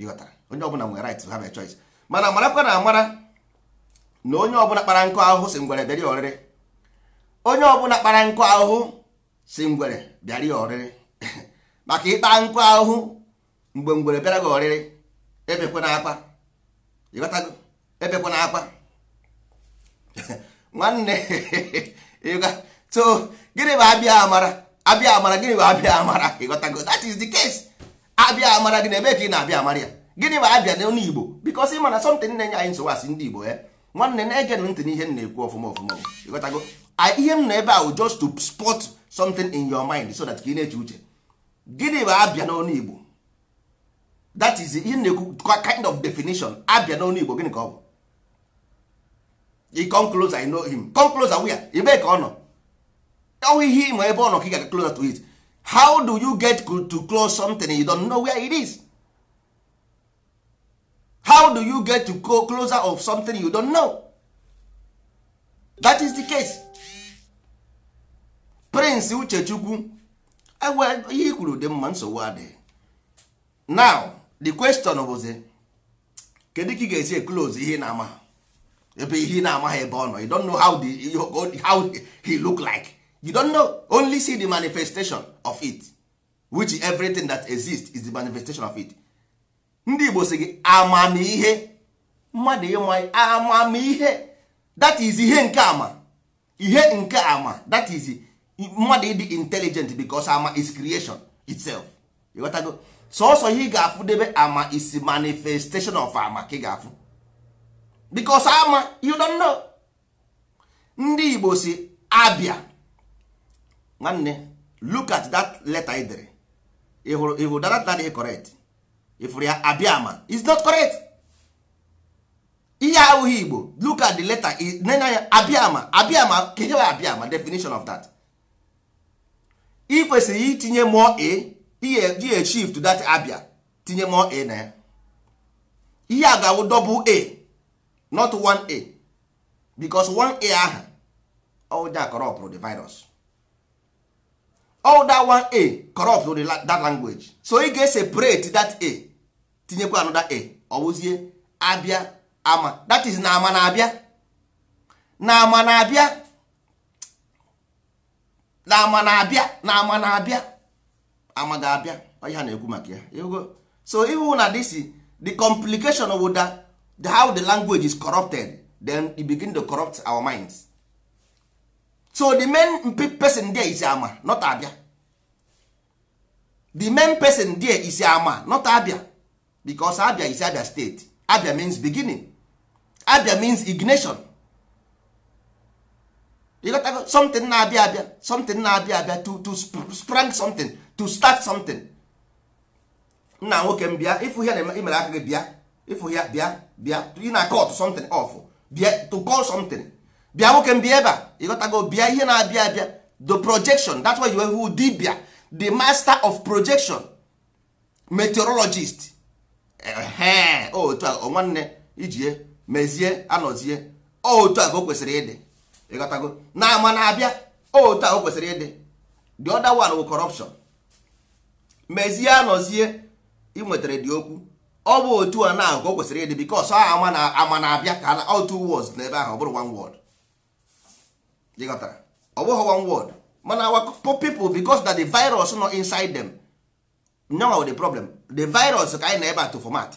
A: ịghọtara onye ọbụla nwere right to have a choice mana marakwa na amara na onye ọbụla kpara nkụ ahụhụ si ngwere bịara ọrịrị onye ọbụla kpara nkụ ahụhụ si ngwere bịara ọrịrị maka ịkpa nkụ ahụhụ mgbe ngwere bịara gị ọrịrị ebekwana akwa ịghọtago ebekwana akwa nwanne so gịnị bụ abịa amara abịa amara gịnị bụ abịa amara ịghọtago that is the case abịa amara gị na ebe ka ị na-abịa amara ya gịnị bụ abịa n'ọnụ Igbo bikos ị mana sọmtin na-enye anyị nsogbu asị ndị Igbo ya eh? nwanne na-ege ntị na ihe m na-ekwu ọfụma ọfụma ịghọtago ihe m na ebe ahụ just to spot something in your mind so that ka ị na-eche uche gịnị bụ abịa n'ọnụ Igbo that is ihe m na-ekwu kind of definition abịa n'ọnụ Igbo gịnị ka ọ bụ i come closer I know him come closer where ebe ka ọ nọ ọwụ ihe ịma ebe ọ nọ ka ị ga-aga closer to it how do you get to close something you don't know where it is how do you get to go closer of something you don't know that is the case prince uchechukwu ihe kwuru dị mma nsogbu adịghị now the question bụzi kedu ka ị ga-esi close ihe na-amaghị ebe ihe na-amaghị ebe ọ nọ you don't know how, the, how he look like you don't know only see the manifestation of it which everything that exists is the manifestation of it ndị Igbo sị gị amamihe mmadụ ịma amamihe that is ihe nke ama ihe nke ama that is mmadụ ịdị intelligent because ama is creation itself go sọsọ ihe ị ga-afụ debe ama is manifestation of ama ka ị ga-afụ because ama you don't know ndị Igbo si abịa nwanne look at that letter ị dere ịhụrụ ịhụ that that is correct ịfụrụ ya abịama is not correct ihe ahụghị igbo look at the letter nena ya abịama abịama kenye wa abịama definition of that ị kwesịrị itinye more a ihe to that abịa tinye more a na ya ihe a ga-awụ double a not one a because one a aha ọ ụja kọrọpụrụ the virus all that one a corrupt the that language so ị ga-separate that a tinyekwa another a ọ abịa ama that is na ama na-abịa na ama na-abịa na ama na-abịa na ama na-abịa ama ga-abịa ọhịa na egwu maka ya so ihu na this the complication of that how the language is corrupted then it begin to corrupt our minds so the main person there is ama not abia the main person there is ama not abia because abia is abia state abia means beginning abia means ignition you got to something na-abịa abịa something na abia abia to to sprang something to start something nna nwoke m bịa ịfụ ihe na imere aka gị bịa ịfụ ya bịa bịa ị na-akọt something off bịa to call something bịa nwoke m bịa ebe a ịghọtago bịa ihe na-abịa abịa the projection that's why you who dibia the master of projection meteorologist ehe oh, otu a nwanne ijie mezie anọzie oh, otu a ka o kwesịrị ịdị ịghọtago na ama na-abịa oh, otu a o kwesịrị ịdị the other one wụ corruption mezie anọzie ị nwetara dị okwu ọ bụ otu a na ka o kwesịrị ịdị bikos ama na-abịa ka otu words n'ebe ahụ ọ bụrụ one word jikọtara ọ bụghị one word mana our people because na the virus nọ inside them nyawa the problem the virus ka anyị na ebe a to format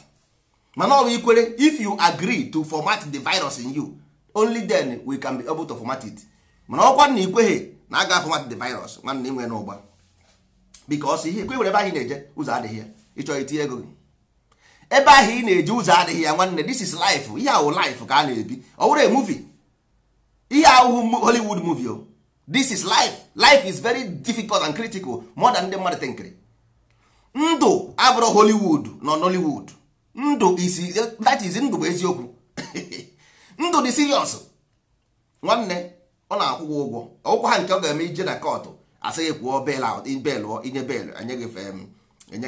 A: mana ọ bụ ikwere if you agree to format the virus in you only then we can be able to format it mana ọkwa na ikweghị na aga format the virus nwanne nwe n'ụgba because ihe ikwe were ebe ahụ na-eje ụzọ adịghị ya ịchọ itinye ego ebe ahụ ị na-eje ụzọ adịghị ya nwanne this is life ihe ahụ life ka a na-ebi ọ bụrụ a movie ihe ahụhụ Hollywood movie o this is life life is very difficult and critical more than ndị mmadụ tenkiri ndụ abụrụ Hollywood nọ Nollywood ndụ isi that is ndụ bụ eziokwu ndụ dị serious nwanne ọ na-akwụ ụgwọ ọgwụkwọ ha nke ọ ga-eme ije na kọtụ asịghị kwụọ bel belụ inye bel enye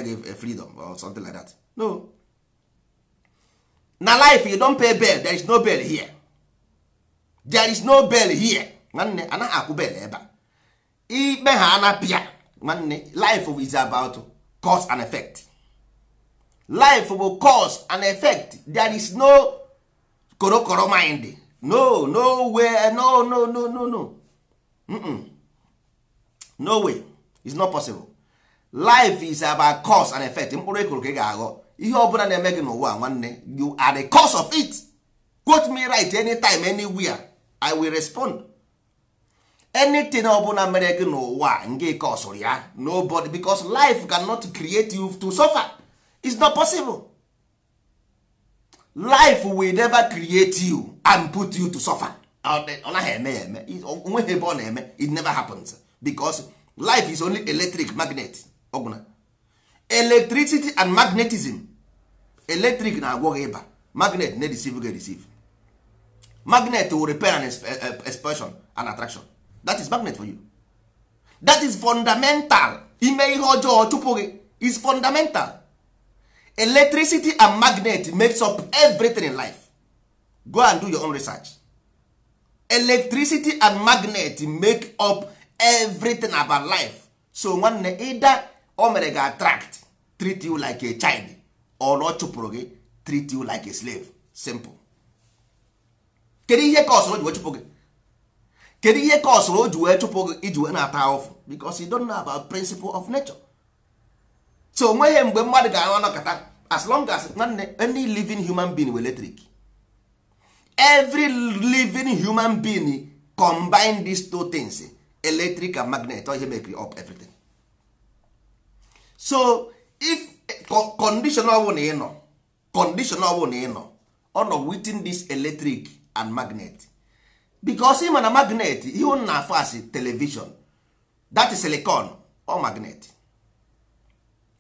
A: gị freedom or something like that no na life you don pay bel there is no bel here there is no bell here nwanne anaghị akwụ bell ebe a ikpe ha anapịa nwanne life is about cause and effect life bụ cause and effect there is no korokoro mind no no way no no no no no mm no way is not possible life is about cause and effect mkpụrụ ekoro ka ị ga-aghọ ihe ọbụla na-eme gị n'ụwa nwanne you are the cause of it quote me right anytime anywhere i will respond anything ọbụla mere gị n'ụwa nke kosụrụ ya nobody because life cannot create you to suffer it's not possible life will never create you and put you to suffer ọ naghị eme ya eme onweghị ebe ọ na-eme it never happens because life is only electric magnet ọbụna electricity and magnetism electric na-agwọ ịba magnet na-edesive gị receive magnet will repair an eh, eh, expression an attraction that is magnet for you that is fundamental ime ihe ọjọọ chụpụ gị is fundamental electricity and magnet makes up everything in life go and do your own research electricity and magnet make up everything about life so nwanne either o mere ga attract treat you like a child or ọ chụpụrụ gị treat you like a slave simple kedu ihe ka o ji wee chụpụ gị kedu ihe ka o ji wee chụpụ gị iji wee na-ata ahụfụ because you don't know about principle of nature so onweghị mgbe mmadụ ga-anọ anọkọta as long as nwanne any living human being were electric every living human being combine these two things electric and magnet ihe mekiri up everything so if condition ọbụla ị ịnọ condition ọbụla ị nọ ọ nọ within this electric and magnet because ma na magnet ihe unu na-afụ asị television that is silicon or magnet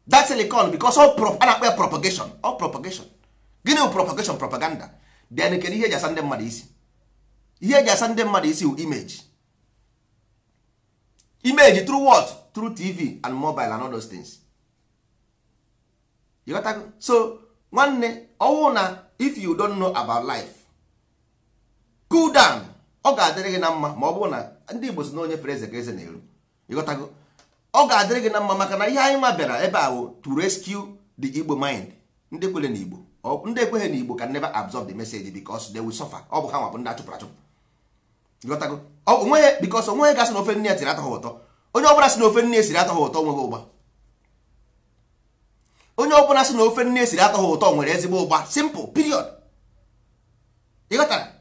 A: dat silicon because all a na-akpọ ya propagation all propagation gịnị bụ propagation propaganda then kedu ihe eji asa ndị mmadụ isi ihe eji asa ndị mmadụ isi bụ image image through what through tv and mobile and all those things you got that? so nwanne ọwụ oh, na if you don't know about life cool down ọ ga-adịrị gị na mma ma ọ bụrụ na ndị Igbo si na onye fere eze ka eze na-eru ịghọtago ọ ga-adịrị gị na mma maka na ihe anyị nwa bịara ebe a wụ to rescue the Igbo mind ndị kwere na Igbo ndị ekweghị na Igbo can never absorb the message because they will suffer ọ bụ ha nwa bụ ndị achụpụrụ achụpụ ịghọtago onweghị because onweghị gasị na ofe nne ya siri atọ ụtọ onye ọbụla si na ofe nne ya siri atọ ụtọ nweghị ụgba onye ọbụla si na ofe nne ya siri atọ ụtọ nwere ezigbo ụgba simple period ịghọtara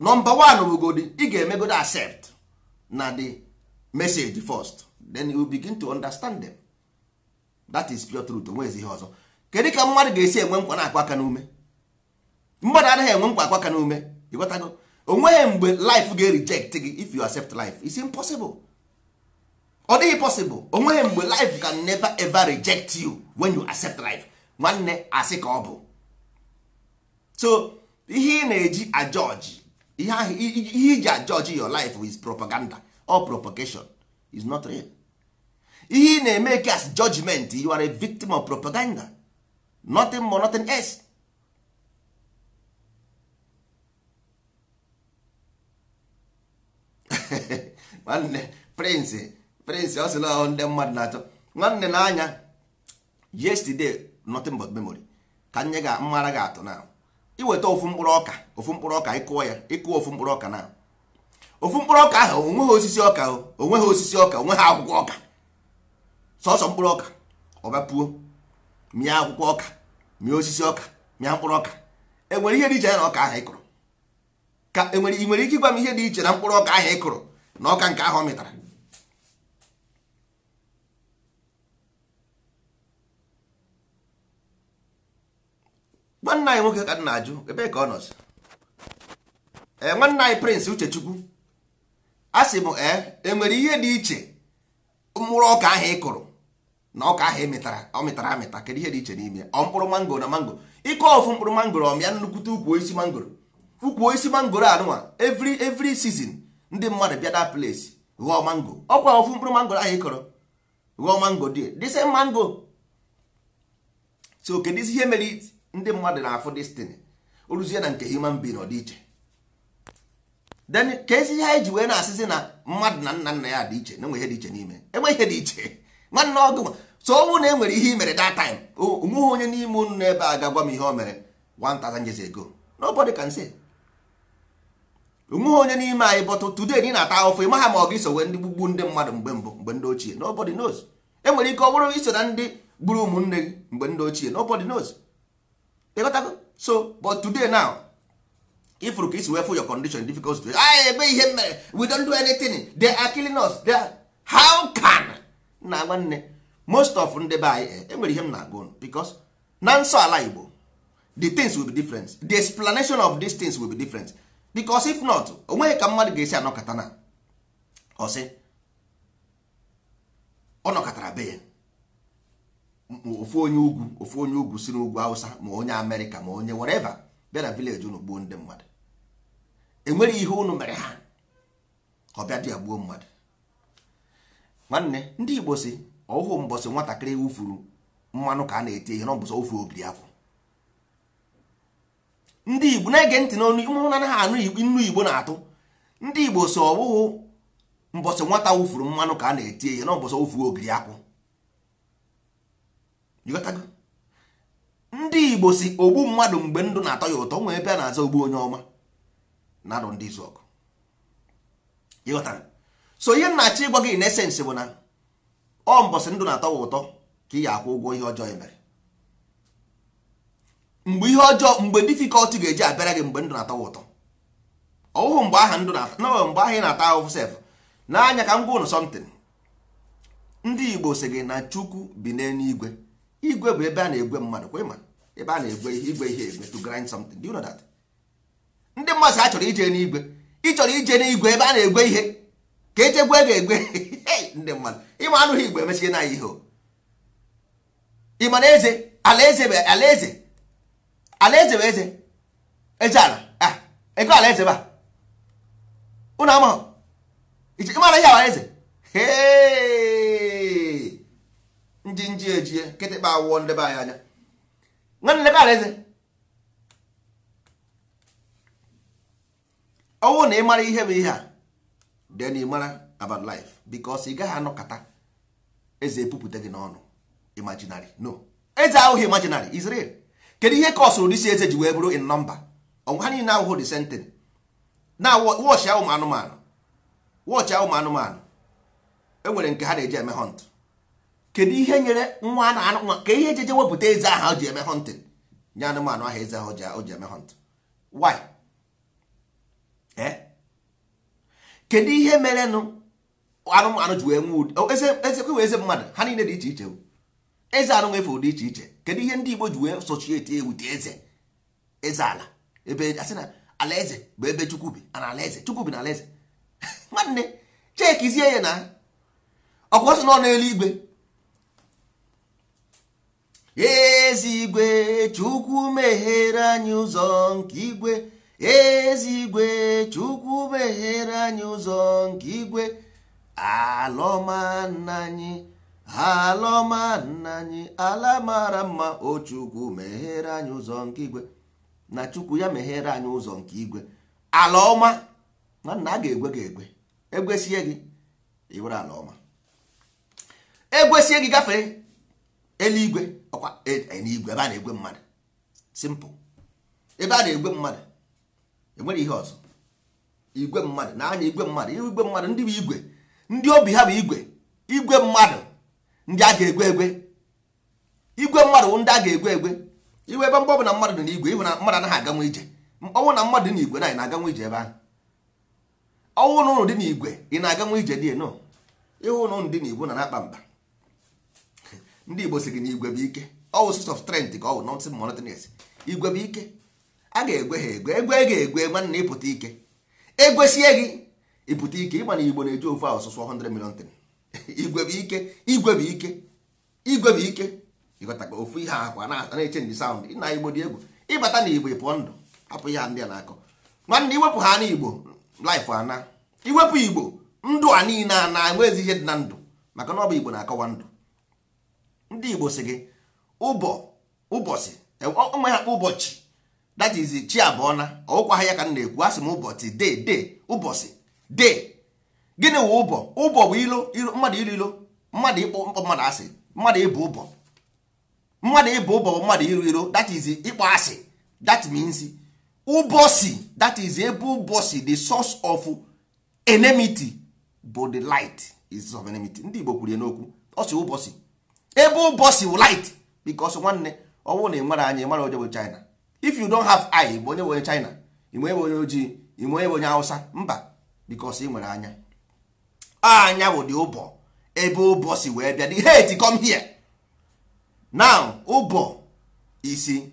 A: nọmba one bụgodi ị ga-emegodi accept na the message first then you begin to understand them that is pure truth onwezi ihe ọzọ kedu ka mmadụ ga-esi enwe nkwa na-akwa aka n'ume mmadụ anaghị enwe nkwa akwa aka n'ume ịghọtago onweghị mgbe life ga reject gị if you accept life it's impossible ọ dịghị possible onweghị mgbe life can never ever reject you when you accept life nwanne asị ka ọ bụ so ihe ị na-eji ajọji ihe ahụ ihe iji ajọji your life is propaganda or propagation is not real ihe ị na-eme ka as judgment you are a victim of propaganda nothing more nothing else nwanne prince prince ọ sịla ndị mmadụ na-achọ nwanne na anya yesterday nothing but memory ka nye ga mmara ga atụ na iweta ofu mkpụrụ ọka ofu mkpụrụ ọka ịkụọ ya ịkụọ ofu mkpụrụ ọka na ofu mkpụrụ ọka ahụ onweghị osisi ọka onweghị osisi ọka onwe ha akwụkwọ ọka sọsọ mkpụrụ ọka ọbapuo mịa akwụkwọ ọka mịa osisi ọka mịa mkpụrụ ọka enwere ihe dị iche na ọka ahụ ịkụrụ ka enwere ị nwere ike ịgwa m ihe dị iche na mkpụrụ ọka ahụ ịkụrụ na ọka nke ahụ ọ mịtara nwanne anyị nwoke ka m na-ajụ ebe ka ọ nọzi ee eh, nwanne anyị prịnsị Uchechukwu a sị m ee eh, nwere ihe dị iche mkpụrụ ọka ahụ ị kụrụ na ọka ahụ emetara ọ mịtara amịta kedu ihe dị iche n'ime ọ mkpụrụ mangoro na mangoro ịkụ ọfụ mkpụrụ mangoro ọmịa nnukwute ukwu osisi mangoro ukwu osisi mangoro anụnwa every every season ndị mmadụ bịa da place ghọọ mango ọkwa ọfụ mkpụrụ mangoro ahụ ị kụrụ ghọọ mango dị dịse mango so kedu ihe mere ndị mmadụ na-afụ destiny oruzie na nke human being ọ dị iche then ka ezi ihe anyị ji wee na-asịzi na mmadụ na nna nna ya dị iche na enwe ihe dị iche n'ime enwe ihe dị iche nwanne ọgụ so ọnwụ na e nwere ihe i mere that time onweghị onye n'ime unu n'ebe a ga-agwa m ihe o mere 1000 years ago nobody can say onweghị onye n'ime anyị bọtụ today dị na-ata ahụfụ ị maha ma ọgụ gị wee ndị gbugbu ndị mmadụ mgbe mbụ mgbe ndị ochie nobody knows enwere ike ọ bụrụ iso na ndị gburu ụmụnne gị mgbe ndị ochie nobody knows so but today now if you isi wee your condition difficult to anyị ebe ihe mere we don't do anything they are killing us they are how can na nwanne most of ndị be anyị enwere ihe m na-agụ because na nsọ ala igbo the things will be different the explanation of these things will be different because if not onweghị ka mmadụ ga-esi anọkata na ọsị ọ nọkọtara be ya ofu onye ugwu ofu onye ugwu si n'ugwu awụsa ma onye amerịka ma onye wereva bịa na vileji unu gbuo ndị mmadụ enweghị ihe unu mere ha ka ọ bịa dị ya gbuo mmadụ nwanne ndị igbo si ọhụụ mbọsị nwatakịrị wufuru mmanụ ka a na-eti ihe n'ọbụsọ ofu ogiri akwụ ndị igbo na-ege ntị n'onu ụmụ na ha anụ nnu igbo na-atụ ndị igbo so ọbụghụ mbọsị nwata wufuru mmanụ ka a na-eti ihe n'ọbụsọ ofu ogiri akwụ ndị igbo si ogbu mmadụ mgbe ndụ na-atọ ya ụtọ nwee ebe a na-aza ogbu onye ọma na-adụ ndị izu ọgụ so ihe nna-achọ ịgwa gị na bụ na ọ mbọsị ndụ na-atọ ya ụtọ ka ị ga-akwụ ụgwọ ihe ọjọọ emere mere mgbe ihe ọjọọ mgbe difikọlti ga-eji abịara gị mgbe ndụ na-atọ ya ụtọ ọwụhụ mgbe aha ndụ na mgbe aha ị na-ata ahụhụ sef n'anya ka m gwa ụnụ sọmtin ndị igbo si gị na chukwu bi n'eluigwe igwe bụ ebe a na-egwe mmadụ kwa ịma ebe a na-egwe ihe igwe ihe egwe to grind something do you know that ndị mmadụ a chọrọ ije n'igwe ị chọrọ ije n'igwe ebe a na-egwe ihe ka eje gwe ga-egwe ndị mmadụ ịma anụghị igwe emechighị na ihe ịma na eze alaeze bụ alaeze alaeze bụ eze eze ala ah, ego alaeze ba ụnụ amahụ ịmara ihe alaeze hee ndị nji ejie kịtịkpa awụọ ndebe anyị anya nwanne lebe alaeze ọnwụ na ị mara ihe bụ ihe a then ị mara about life because ị gaghị anọkọta eze epupụta gị n'ọnụ imaginary no eze ahụghị imaginary is real kedu ihe kọsụrụ dịsi eze ji wee bụrụ in nọmba ọnwụ ha niile ahụhụ the sentence na wọchị ụmụ anụmanụ wọchị ụmụ anụmanụ enwere nke ha na-eji eme hunt kedu ihe nyere nwa na nwa ka ihe ejeje wepụta eze aha o ji eme hunting nye anụmanụ ahụ eze ahụ o ji eme hunt why eh? kedu ihe mere nụ anụmanụ ji wee nwee eze kwe eze mmadụ ha niile dị iche iche eze anụ nwefe ụdị iche iche kedu ihe ndị Igbo ji wee sochieti ewute eze eze ala ebe asị na alaeze bụ ebe Chukwu bi na alaeze Chukwu bi na alaeze nwanne chekizie ya na ọkwa ọsọ na-elu igwe. ezigwe chukwu meghere anyị ụzọ nke igwe ezigwe chukwu meghere anyị ụzọ nke igwe alọma nna anyị alọma nna anyị ala mara mma o chukwu meghere anyị ụzọ nke igwe na chukwu ya meghere anyị ụzọ nke igwe ala ọma nwanna a ga-egwe gị egwe egwesie gị iwere ala ọma egwesie gị gafee eluigwe ọkwa e, igwe ebe a na-egwe mmadụ simple ebe a na-egwe mmadụ enwere ihe ọzọ igwe mmadụ na anya igwe mmadụ igwe mmadụ ndị bụ igwe ndị obi ha bụ igwe igwe mmadụ ndị a ga-egwe egwe igwe mmadụ ndị a ga-egwe egwe iwe ebe mgbe na mmadụ dị n'igwe ịhụ na mmadụ anaghị aganwe ije ọnwụ na mmadụ dị igwe na ị na-aganwe ije ebe ahụ ọnwụ na ụlọ dị n'igwe ị na-aganwe aga ije dị no ịhụ na ụlọ dị igwe na na-akpa mba ndị igbo si gị na igwe bụ ike ọwụ source of strength ka ọ wụ nothing monotonous igwe bụ ike a ga-egwe ha egwe egwe ga-egwe nwanne ịpụta ike egwesie gị ịpụta ike ịgba na igbo na-eji ofu ahụ sụsụ 100 million tin igwe bụ ike igwe bụ ike igwe bụ ike ịghọtaka ofu ihe akwa na-eche ndị sound na igbo dị egwu ịbata na igbo ịpụọ ndụ hapụ ihe ndị a na-akọ nwanne iwepụ ha n'igbo life ana iwepụ igbo ndụ a niile a na-enwezi ihe dị na ndụ maka na ọ bụ igbo na-akọwa ndụ ndị igbo si gị ụbọ ụbọchị onwe ha ụbọchị that is chi abụọ na ọkwa ha ya ka m na-ekwu asị m ụbọchị de de ụbọchị de gịnị wụ ụbọ ụbọ bụ ilo mmadụ ilo ilo mmadụ ịkpọ mkpọ mmadụ asị mmadụ ịbụ ụbọ mmadụ ịbụ ụbọ bụ mmadụ iro iro that is ịkpọ asị that means ụbọchị that is ebe ụbọchị the source of enmity bụ the light is of enmity ndị igbo kwuru ya n'okwu ọsị ụbọchị ebe ụbọchị light because nwanne ọ na ị anya ị onye bụ China if you don't have eye bụ onye bụ onye China ị nwere onye ojii ị Hausa mba because ị nwere anya anya bụ dị ụbọ ebe ụbọchị wee bịa the hate com here now ụbọ isi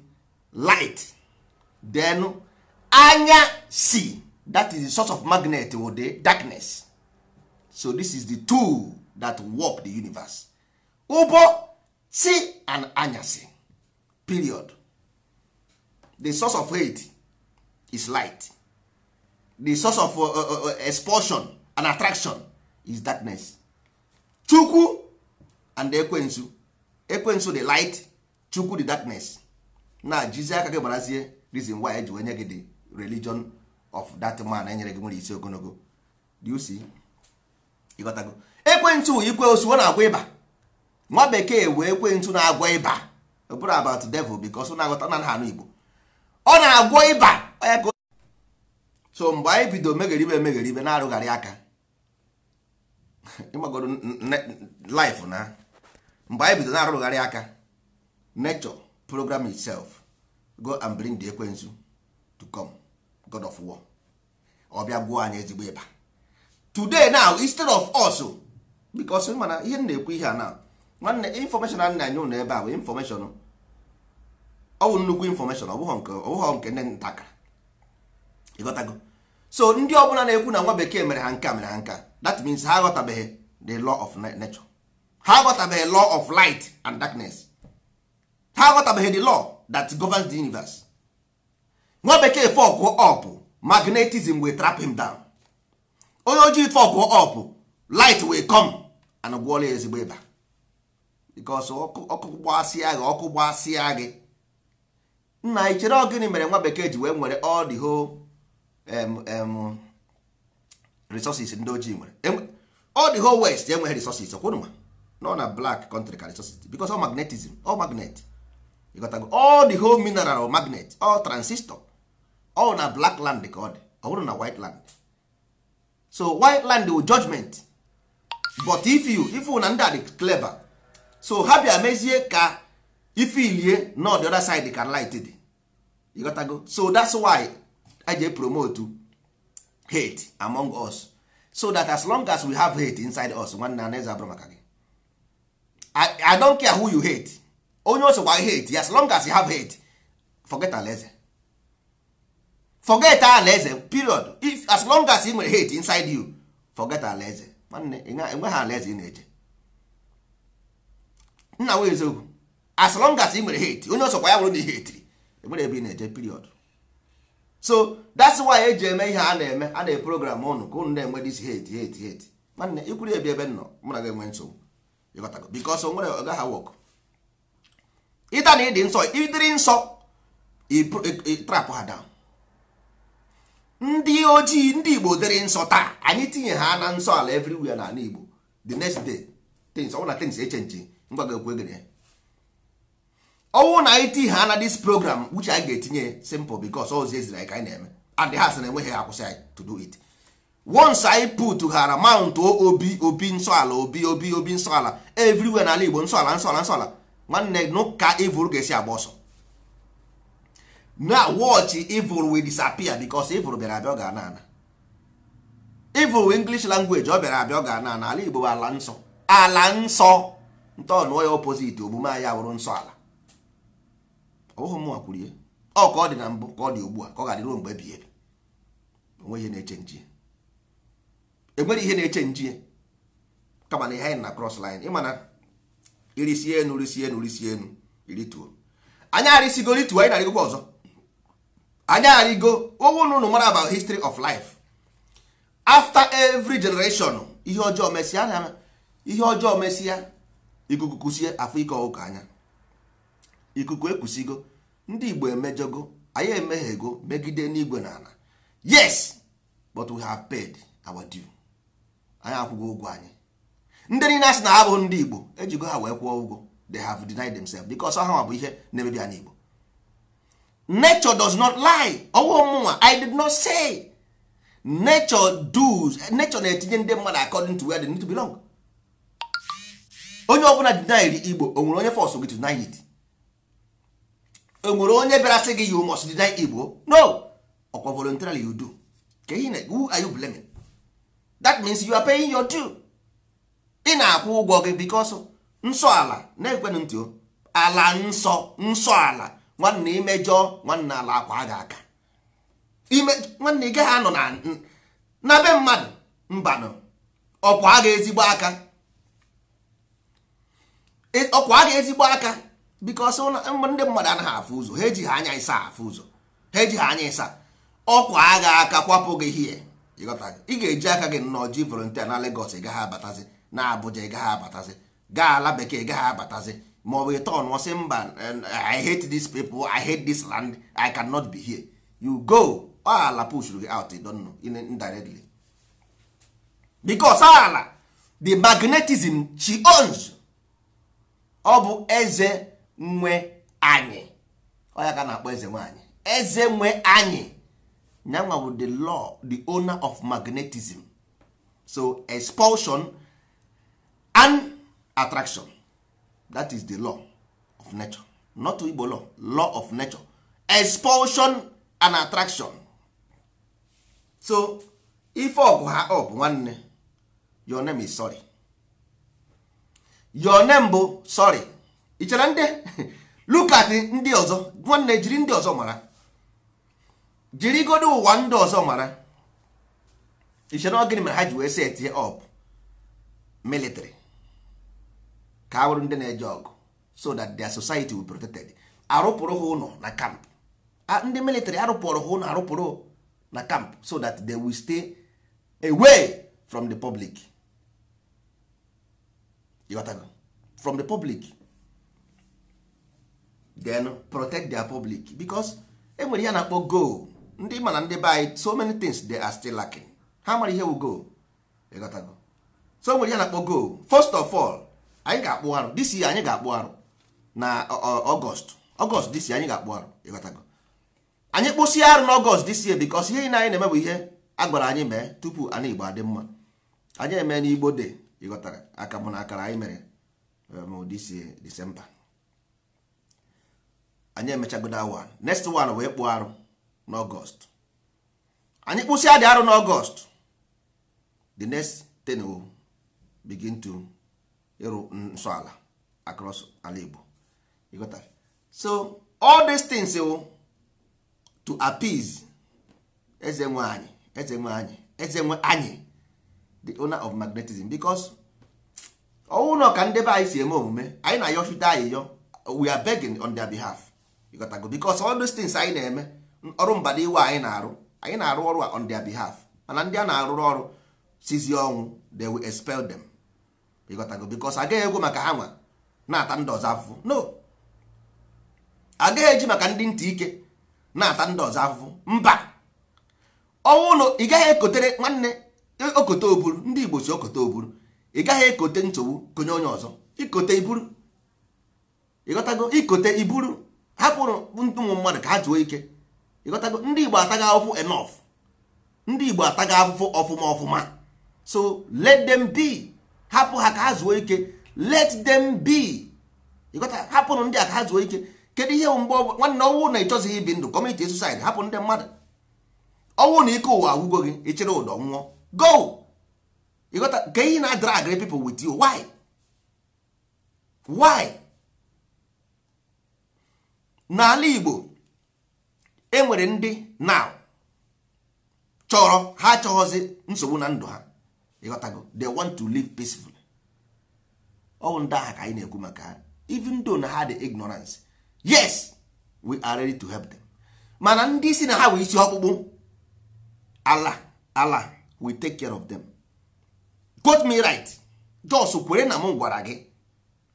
A: light then anya si that is the source of magnet wo the darkness so this is the tool that work the universe ụbọ chi and anyasị period the source of hate is light the source of uh, uh, uh expulsion and attraction is darkness chukwu and ekwensu ekwensu the light chukwu the darkness na jizi aka gị gbarazie reason why eji wee gị the religion of that man enyere gị nwere isi ogologo you see ịghọtago ekwensu ikwe osu na-agwa ịba nwa bekee wee kwe ntu na-agwọ ịba ọ bụrụ about devil because ọ na-aghọta na ha Igbo ọ na-agwọ ịba onye ka so mgbe anyị bido megheribe emegheribe na-arụgharị aka ịgbagoro life na mgbe anyị bido na-arụgharị aka nature program itself go and bring the ekwensu to come god of war ọ bịa gwuo anyị ezigbo ịba today now instead of us because mana ihe m na-ekwu ihe a now nwanne infọmeshọn a na-enye ụnụ ebe a bụ infọmeshọn ọ bụ nnukwu infọmeshọn ọ bụghọ nke ndị ntakara ịghọtago so ndị ọbụla na-ekwu na nwa bekee mere ha nka mere ha nka that means ha aghọtabeghị the law of nature ha aghọtabeghị law of light and darkness ha aghọtabeghị the law that governs the universe nwa bekee fọkụ ọpụ magnetism will trap him down onye ojii fọkụ ọpụ light will come and gwọọla ezigbo ịba bikos ọkụ gbasịa gị ọkụ gbasịa gị nna anyị chere ọ mere nwa bekee ji wee nwere all the whole um, resources ndị ojii nwere all the whole west enweghị resources ọkwụnụma nọ na black country ka resources bikos ọ magnetism ọ magnet ịgotago all the whole mineral magnet all transistor all na black land ka ọ dị ọ bụrụ na white land so white land wu judgment but if you if una ndị a dị clever so ha bịa mezie ka Ilie nọ the other side ka light dị ịghọtago so that's why I je promote hate among us so that as long as we have hate inside us nwanne anaghịzi abụrụ maka gị I don't care who you hate onye osokwa hate as long as you have hate forget alaeze forget alaeze period if as long as ị nwere hate inside you forget alaeze nwanne enweghị alaeze ị na-eje nna nwe eziokwu as long as ị nwere hate onye ọsọkwa ya bụrụ na ihe etiri enwere ebe ị na-eje period so that's why e ji eme ihe a na-eme a na-eprogram ụnụ ka ụnụ na-enwe dis hate hate hate nwanne ikwuru ebi ebe nọ mụ na gị enwe nsogbu ịghọtago because nwere ha wọk ịta na ịdị nsọ ịdịrị nsọ trap ha down ndị ojii ndị igbo dịrị nsọ taa anyị tinye ha na nsọ ala na n'ala igbo the next day things ọ bụ na things echenji ngwa ga-ekwe gịnị ọnwụ na anyị ti ha na dis program which anyị ga-etinye simple because ozi eziri anyị ka anyị na-eme and ha sị na enweghị akwụsị anyị to do it once anyị put hara mount obi obi nsọala obi obi obi nsọala everywhere n'ala Igbo nsọala nsọala nsọala nwanne n'ụka evil ga-esi agba ọsọ na watch evil wi disappear because evil bịara abịa ọ ga ana ana wi english language ọ bịara abịa ọ ga ana ana ala Igbo bụ ala nsọ ala nsọ ntọọnụọ ya opoziti omume anyị abụrụ nsọ ala ọbụghị mụnwa kwurie ọ ka ọ dị na mbụ ka ọ dị ugbu a ka ọ ga-adị ruo mgbe ebighị ebi onweghị ihe na-eche nji enwere ihe na-eche nji kama na ihe anyị na cross line ịmana irisi enu risi enu risi enu irituo anyị arịsigo rituo anyị narịgokwa ọzọ anyị arịgo ụgwụ na ụnụ mara about history of life after every generation ihe ọjọọ mesịa ihe ọjọọ mesịa ikuku kwụsie afọ ike ọkụkọ anya ikuku ekwusigo ndị igbo emejọgo anyị emeghego megide n'igwe na ala yes but we have paid our due anyị akwụgo ụgwọ anyị ndị niile asị na ha bụ ndị igbo ejigo ha wee kwụọ ụgwọ they have denied themselves because ha bụ ihe na-emebi anyị igbo nature does not lie ọwụ mụnwa i did not say nature does nature na-etinye ndị mmadụ according to where they need to belong onye ọbụla dinairi igbo onwere onye fọsụ gị deny it enwere onye bịara sị gị you must deny igbo no ọkwa voluntarily you do ka ihe na who are you blaming that means you are paying your due ị na-akwụ ụgwọ gị because nsọ ala na-ekwenụ ntị ala nsọ nsọ ala nwanne imejọ nwanne ala akwa gị aka nwanne ị gaghị anọ na be mmadụ mbanụ ọkwa gị ezigbo aka ọkwa ga ezigbo aka because ndị mmadụ anaghị afụ ụzọ ha ejighị anya ịsa afụ ụzọ ha ejighị anya ịsa ọkwa agha aka kwapụ gị hie ị ga-eji aka gị nnọọ ji volontia na legos gaghị abatazi na Abuja ịgaghị abatazi gaa ala bekee gaghị abatazi ma ọ bụ ịtọn ọsị mba I hate this people I hate this land I cannot be here you go ala pushuru gị out don't know indirectly because ala the magnetism she owns ọ bụ eze nwe anyị ọ ya ka na-akpọ eze nwanyị eze nwe anyị nyanwa bụ the law the owner of magnetism so expulsion and attraction that is the law of nature not Igbo law law of nature expulsion and attraction so ife ọgụ ha ọ bụ nwanne your name is sorry. your name bụ sorry ị chere ndị look at ndị ọzọ nwanne jiri ndị ọzọ mara jiri godo ụwa ndị ọzọ mara ị chere gịnị mere ha ji wee set up military ka a bụrụ ndị na-eje ọgụ so that their society will protected arụpụrụ ha ụlọ na camp ndị military arụpụrụ ha ụlọ arụpụrụ na camp so that they will stay away from the public egotago from the public then protect their public because enwere ihe a na-akpọ go ndị mana ndị be anyị so many things they are still lacking ha mara ihe wu go so enwere ihe a na-akpọ go first of all anyị ga-akpụ arụ this year anyị ga-akpụ arụ na ọgọst ọgọst this year anyị ga-akpụ arụ ịghọtago anyị kpụsịa arụ n'ọgọst this year because ihe anyị na-eme ihe a gwara anyị mee tupu anyị igbo adị mma anyị eme n'igbo de ịghọtara aka mụ na akara anyị mere e, ma si disemba anyị emechagoda awa next one wee kpụọ arụ n'ọgọst anyị kpụsịa dị arụ n'ọgọst the next ten begin to ịrụ nsọ ala across ala Igbo ịghọtara so all these things oh, to appease eze nwe anyị eze nwe anyị eze nwe anyị the owner of magnetism because ọnwụ na ọka ndebe anyị si eme omume anyị na-ayọchite anyị yọ we are begging on their behalf ịgotago because all those things anyị na-eme ọrụ mbada iwe anyị na-arụ anyị na-arụ ọrụ a on their behalf mana ndị a na arụ ọrụ sizi ọnwụ they will expel them ịgotago because agaghị egwu maka ha nwa na-ata ndị ọzọ afụfụ no agaghị eji maka ndị ntị ike na-ata ndị ọzọ afụfụ mba ọnwụ na ị gaghị ekotere nwanne okote oburu ndị igbo si okote oburu ị gaghị ekote nsogbu konye onye ọzọ ikote iburu ịghọtago ikote iburu hapụrụ ndị ụmụ mmadụ ka ha zuo ike ịghọtago ndị igbo ataga afụ enough ndị igbo ataga afụfụ ọfụma ọfụma so let them be hapụ ha ka ha zuo ike let them be ịghọta hapụrụ ndị a ka ha zuo ike kedu ihe mgbe nwanne ọnwụ na ịchọzighị ibi ndụ kọmiti susaid hapụ ndị mmadụ ọnwụ na ike ụwa agwụgo gị ịchịrị ụdọ nwụọ go you got na drag people wit you why why n'ala Igbo enwere ndị now chọrọ ha chọghọzi nsogbu na ndụ ha ịghọtago they want to live peacefully ọ bụ ndị agha ka anyị na-ekwu maka ha even though na ha dị ignorance yes we are ready to help them mana ndị si na ha wee isi ọkpụkpụ ala ala we take care of them got me right jos kwere na m gwara gị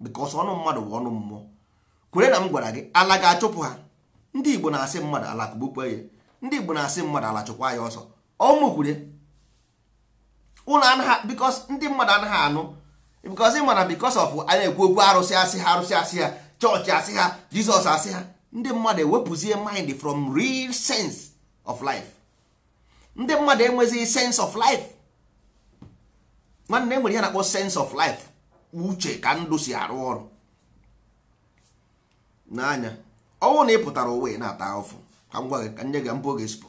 A: because ọnụ mmadụ bụ ọnụ mmụọ kwere na m gwara gị ala ga-achụpụ ha ndị igbo na-asị mmadụ ala kụgbukwa ya ndị igbo na-asị mmadụ ala chụkwa ya ọsọ ọmụkwure ụlọ anaghị because ndị mmadụ anaghị anụ because ị mara because of a na-ekwu okwu arụsị asị ha arụsị asị ha chọọchị asị ha jizọs asị ha ndị mmadụ ewepụzie mind from real sense of life ndị mmadụ enweghị sense of life nwanne enwere ihe na-akpọ sense of life uche ka ndụ si arụ ọrụ n'anya ọnwụ na ị pụtara ụwa na-ata ụfụ ka m gị ka nye gị mbụ oge spụ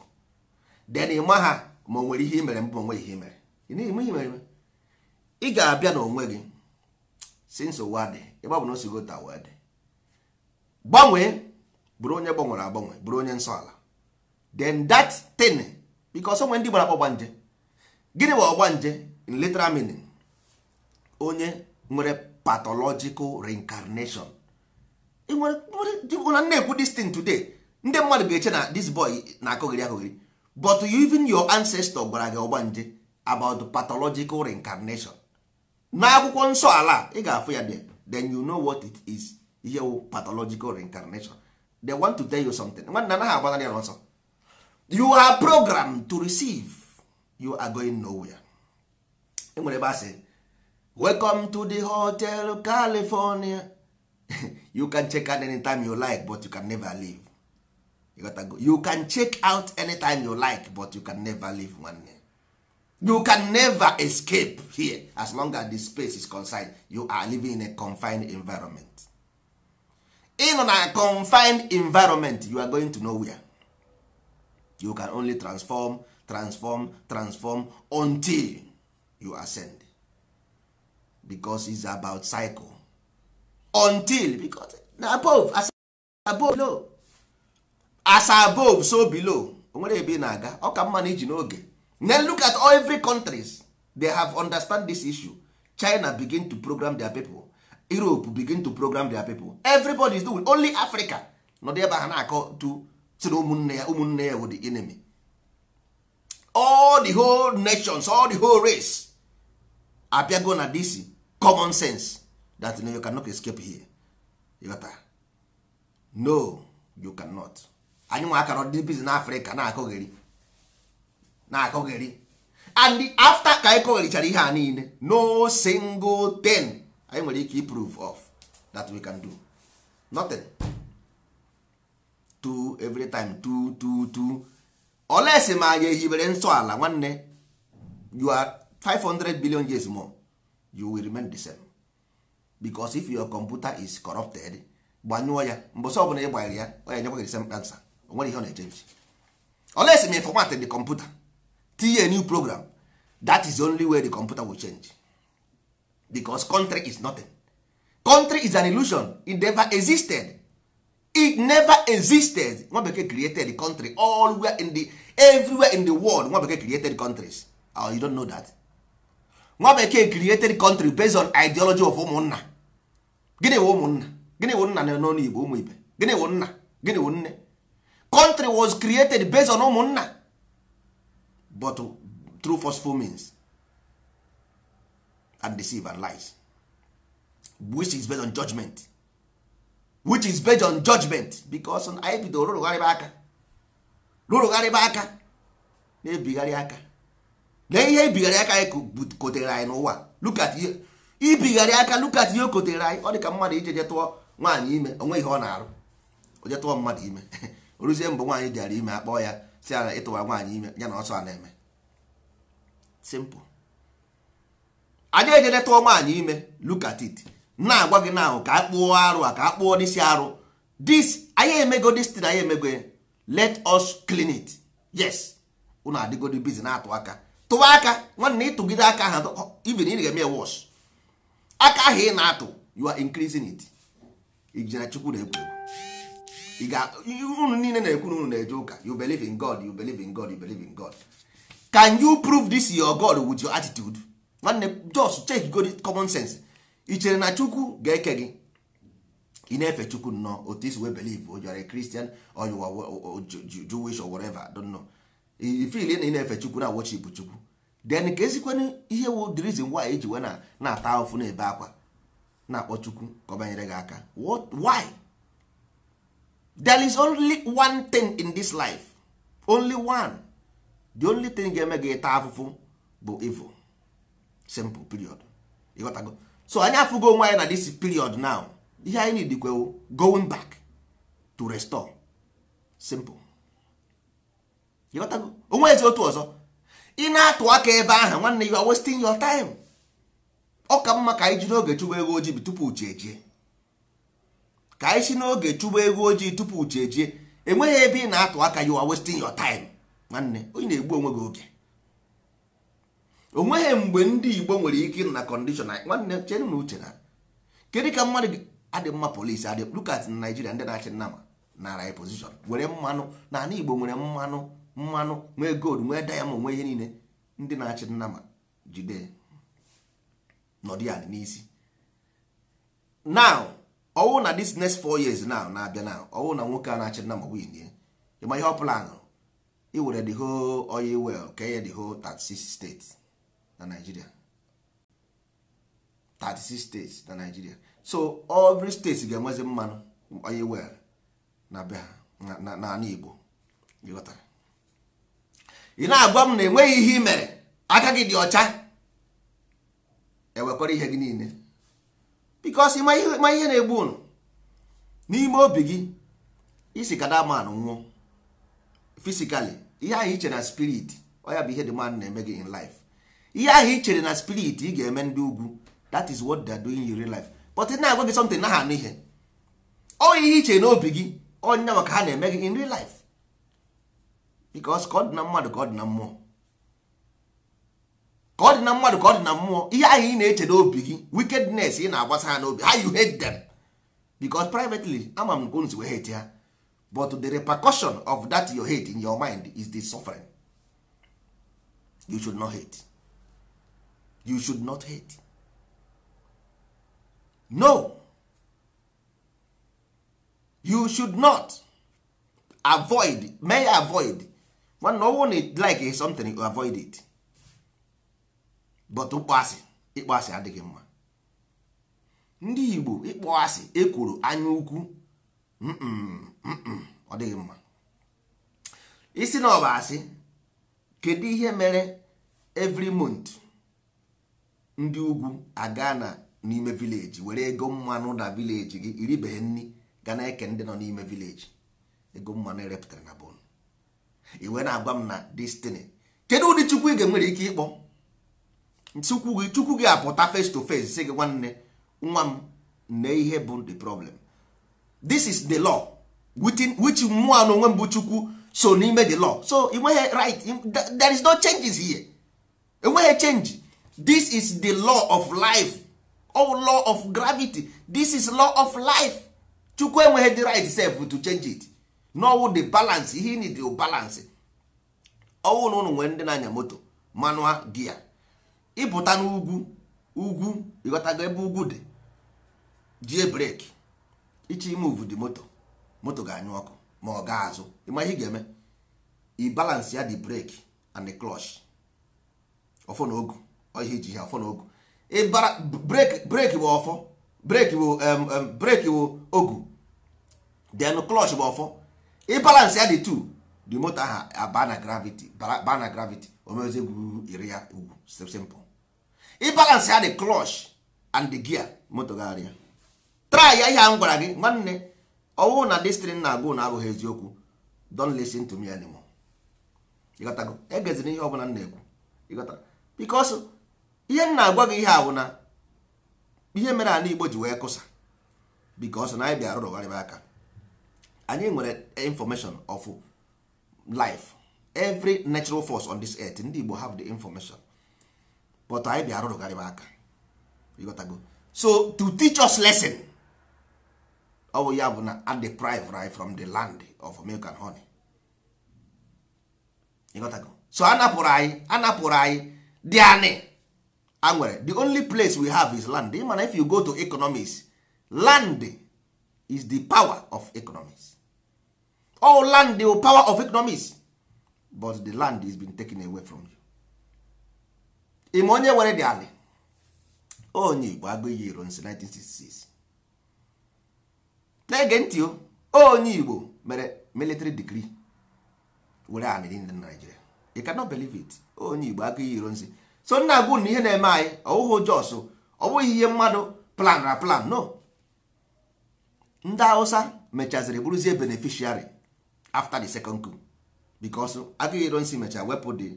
A: den ịma ha ma o nwere ihe imere mbụ onwe ihe imere ị ga-abịa n'onwe gị since ụwa dị ịgba bụ na o sigo ta ụwa dị gbanwee bụrụ onye gbanwere agbanwe bụrụ onye nsọ ala then that because onwe ndị gbara akpọ gbanje gịnị bụ ọgbanje in literal meaning onye nwere pathological reincarnation na na-ekwu this today ndị mmadụ ga-eche na this boy na-akụghịrị akụghịrị but even your ancestor gwara gị ọgbanje about pathological reincarnation n'akwụkwọ nsọ ala ị ga-afụ ya then you know what it is ihe pathological reincarnation they want to tell you something agbanarị ya you are programmed to receive you are going nowhere enwere ebe say, welcome to the hotel california you can check out anytime you like but you can never leave you, gotta go. you can check out anytime you like but you can never leave nwanne you can never escape here as long as the space is confined you are living in a confined environment in a confined environment you are going to nowhere you can only transform transform transform until you ascend because it's about cycle until because na above as above below as above so below onwere ebe na-aga ọ ka mma na iji n'oge then look at all every countries they have understand this issue china begin to program their people europe begin to program their people everybody is doing only africa nọ ebe ha na-akọ to sịrị na ụmụnne ya ụmụnne ya wụ the enemy all the whole nations all the whole race abịago na this common sense that no, you cannot escape here ịghọta no you cannot anyị nwe akara ọdịdị biz na afrịka na-akọgheri na-akọgheri and after ka anyị kọgherichara ihe a niile no single thing anyị nwere ike proof of that we can do nothing. two every time two two two olesi ma anyị ehibere nwanne you are 500 billion years more you will remain the same because if your computer is corrupted gbanyụọ ya mbọsị ọbụla ị gbanyere ya ọ ya nyekwa gị the same answer o nwere ihe ọ na-echenji olesi ma format the computer tinye new program that is the only way the computer will change because country is nothing country is an illusion it never existed it never existed nwa bekee created the country everywhere in the everywhere in the world nwa bekee created countries oh, you don't know that nwa bekee created country based on ideology of ụmụnna gịnị wụ ụmụnna gịnị wụ nna n'ọnụ igbo ụmụ ibe gịnị wụ nna gịnị wụ nne country was created based on ụmụnna but through forceful means and deceive and lies which is based on judgment which is based on judgment because anyị bido rụrụgharịba aka rụrụgharịba aka na-ebigharị aka na ihe ibigharị aka anyị kotere anyị n'ụwa lukat ihe ibigharị aka lukat ihe o anyị ọ dị ka mmadụ ije jetụọ nwaanyị ime onwe ihe ọ na-arụ ojetụọ mmadụ ime oruzie mbụ nwaanyị jara ime akpọọ ya si ala ịtụwa nwaanyị ime ya na ọsọ a na-eme simple anyị ejedetụọ nwaanyị ime lukatit. na-agwa gị na ahụ ka a kpụọ arụ a ka a kpụọ n'isi arụ this anyị emego this thing anyị emego let us clean it yes unu adịgodi bizi na-atụ aka tụwa aka nwanne ịtụgide aka ahụ even ị ga-eme wọs aka ahụ ị na-atụ you are increasing it ijere chukwu na-ekwu unu niile na-ekwu unu na-eje ụka you believe in God you believe in God you believe in God can you prove this your God with your attitude nwanne just check good common sense i chere na chukwu ga-eke gị ị na-efe chukwu nnọọ otu isi wee believe ojọrọ kristian ojuwish or whatever don't know ifil na ị na-efe chukwu na worship chukwu then ka ezikwana ihe wu the reason why eji wee na-ata ofu na-ebe akwa na-akpọ chukwu ka ọ banyere gị aka why there is only one thing in this life only one the only thing ga-eme gị taa afụfụ bụ evil simple period ịghọtago so anyị afụgo onwe anyị na this period now ihe anyị need dịkwewo going back to restore simple onwe ezi otu ọzọ ị na-atụ aka ebe ahụ nwanne you are wasting your time ọ ka mma ka anyị jiri oge chụba ego ojii tupu uche ejie ka anyị si n'oge chụba ego ojii tupu uche ejie enweghị ebe ị na-atụ aka you are wasting your time nwanne onye na-egbu onwe gị oge o nweghị mgbe ndị igbo nwere ike ịrụ na kọndishọn nwanne chere na uche na kedu ka mmadụ adị mma polisi adị lukat na naijiria ndị na-achị nnama nara anyị pozishọn were mmanụ na ana igbo nwere mmanụ mmanụ nwee gold nwee dayamond nwee ihe niile ndị na-achị nnama jide nọdụ ya n'isi now ọwụ na this next four years now na-abịa now ọwụ na nwoke a na-achị nnama win ịma ihe ọ pụlanụ iwere the whole oil well ka enye the whole 36 states na nigeria 36 states na nigeria so every state ga-enwezi mmanụ onye wel na be ha n'ala igbo ị na-agwa m na enweghị ihe i mere aka gị dị ọcha ewekwara ihe gị niile bikos ma ihe na-egbu unu n'ime obi gị isi kada man nwụọ fisikali ihe ahụ iche na spirit ọ ya bụ ihe dị man na-eme gị in life ihe ahụ ị chere na spirit ị ga-eme ndị ugwu that is what they are doing in real life but na-agwa gị something na ha anụ ihe ọ ihe i chere n'obi gị onye maka ha na-eme gị in real life because ka ọ dị na mmadụ ka ọ dị na mmụọ ka ọ dị na mmadụ ka ọ dị na mmụọ ihe ahụ ị na-eche n'obi gị wickedness ị na-agbasa ha n'obi how you hate them because privately ama m gonzi wee hate ha but the repercussion of that your hate in your mind is the suffering you should not hate you should not hate no you should not avoid may avoid when no one like something you avoid it but ịkpọ asị adịghị mma ndị Igbo ịkpọ ekworo anya ukwu ọ dịghị mma isi na ọ asị kedu ihe mere every month ndị ugwu aga na n'ime vileji were ego mmanụ na vileji gị iribeghe nri ga na-eke ndị nọ n'ime vileji ego mmanụ erepụtara na bon iwe na-agwa m na destiny kedu ụdị chukwu ị ga-enwere ike ịkpọ chukwu gị chukwu gị apụta face to face sị gị nwanne nwa m nne ihe bụ the problem this is the law which mmụọ n'onwe onwe mbụ chukwu so n'ime the law so ị nweghị right there is no changes here enweghị change this is the law of life or oh, law of gravity this is law of life chukwu enweghị the right self to change it n'ọwụ the balance ihe need the balance ọwụ na ụnụ nwere ndị na-anya moto manual gia ịpụta n'ugwu ugwu ịghọtago ebe ugwu dị jie breki ime imuvu di moto moto ga-anyụ ọkụ ma ọ ga-azụ ịma ihe ị ga-eme i ya the breki and the clutch ọfọ na ogu ihe iji ha afọ n'ogu breki bụ ọfọ breki bụ breki bụ ogu then klọch bụ ọfọ ịbalans ya dị tu the moto ahụ aba na gravity ba na gravity omezi gwuru iri ya ugwu simple ịbalans ya dị klọch and gia gear moto gagharịa try ya ihe a m gwara gị nwanne ọwụ na destrin na-agụ na abụghị eziokwu don listen to me anymore ịghọtago egezina ihe ọ bụla m na-ekwu ịghọtara because ihe m na-agwa gị ihe a ihe mere ala Igbo ji wee kụsa because na anyị bịa rụrụgharịba aka anyị nwere information of life every natural force on this earth ndị Igbo have the information but anyị bịa rụrụgharịba aka ịghọtago so to teach us lesson ọ bụ ya bụ na and deprive right from the land of milk and honey ịghọtago so anapụrụ anyị anapụrụ anyị dị anyị anwere the only place we have is land na if you go to economics land is the power of economics all oh, land the power of economics but the land is been taken away from you ịma onye were di ali onye igbo agụghị iro nsi 1966 na-ege ntị o onye igbo mere military degree were anị niile na Nigeria you cannot believe it onye igbo agụghị iro nsi so nna agụ na ihe na-eme anyị ọwụhụ jos ọ bụghị ihe mmadụ plan na plan no ndị hausa mechaziri bụrụzie beneficiary after the second coup because agụghị ironsi mechara wepụ the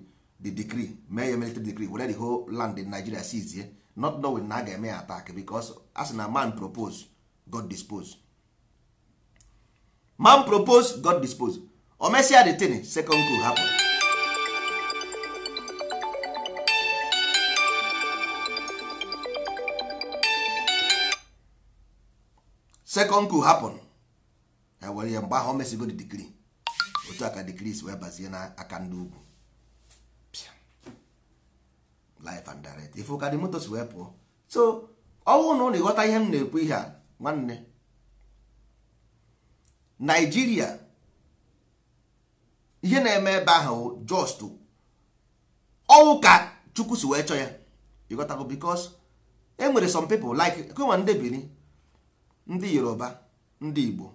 A: the decree mee ya military decree were the whole land in Nigeria sizie not knowing na a ga-eme ya attack because a na man propose God dispose man propose God dispose o mesịa the thing second coup hapụ second coup happen e were ya mgbe ahụ o mesigo the degree otu aka decrease wee bazie na aka ndị ugwu life and direct ife ụka dị motos wee pụọ so ọnwụ na ụlọ ịghọta ihe m na-ekwu ihe a nwanne Naijiria ihe na-eme ebe ahụ just ọnwụ ka Chukwu si wee chọọ ya ịghọtago because e nwere some people like kụnwa ndị ndị yoruba ndị igbo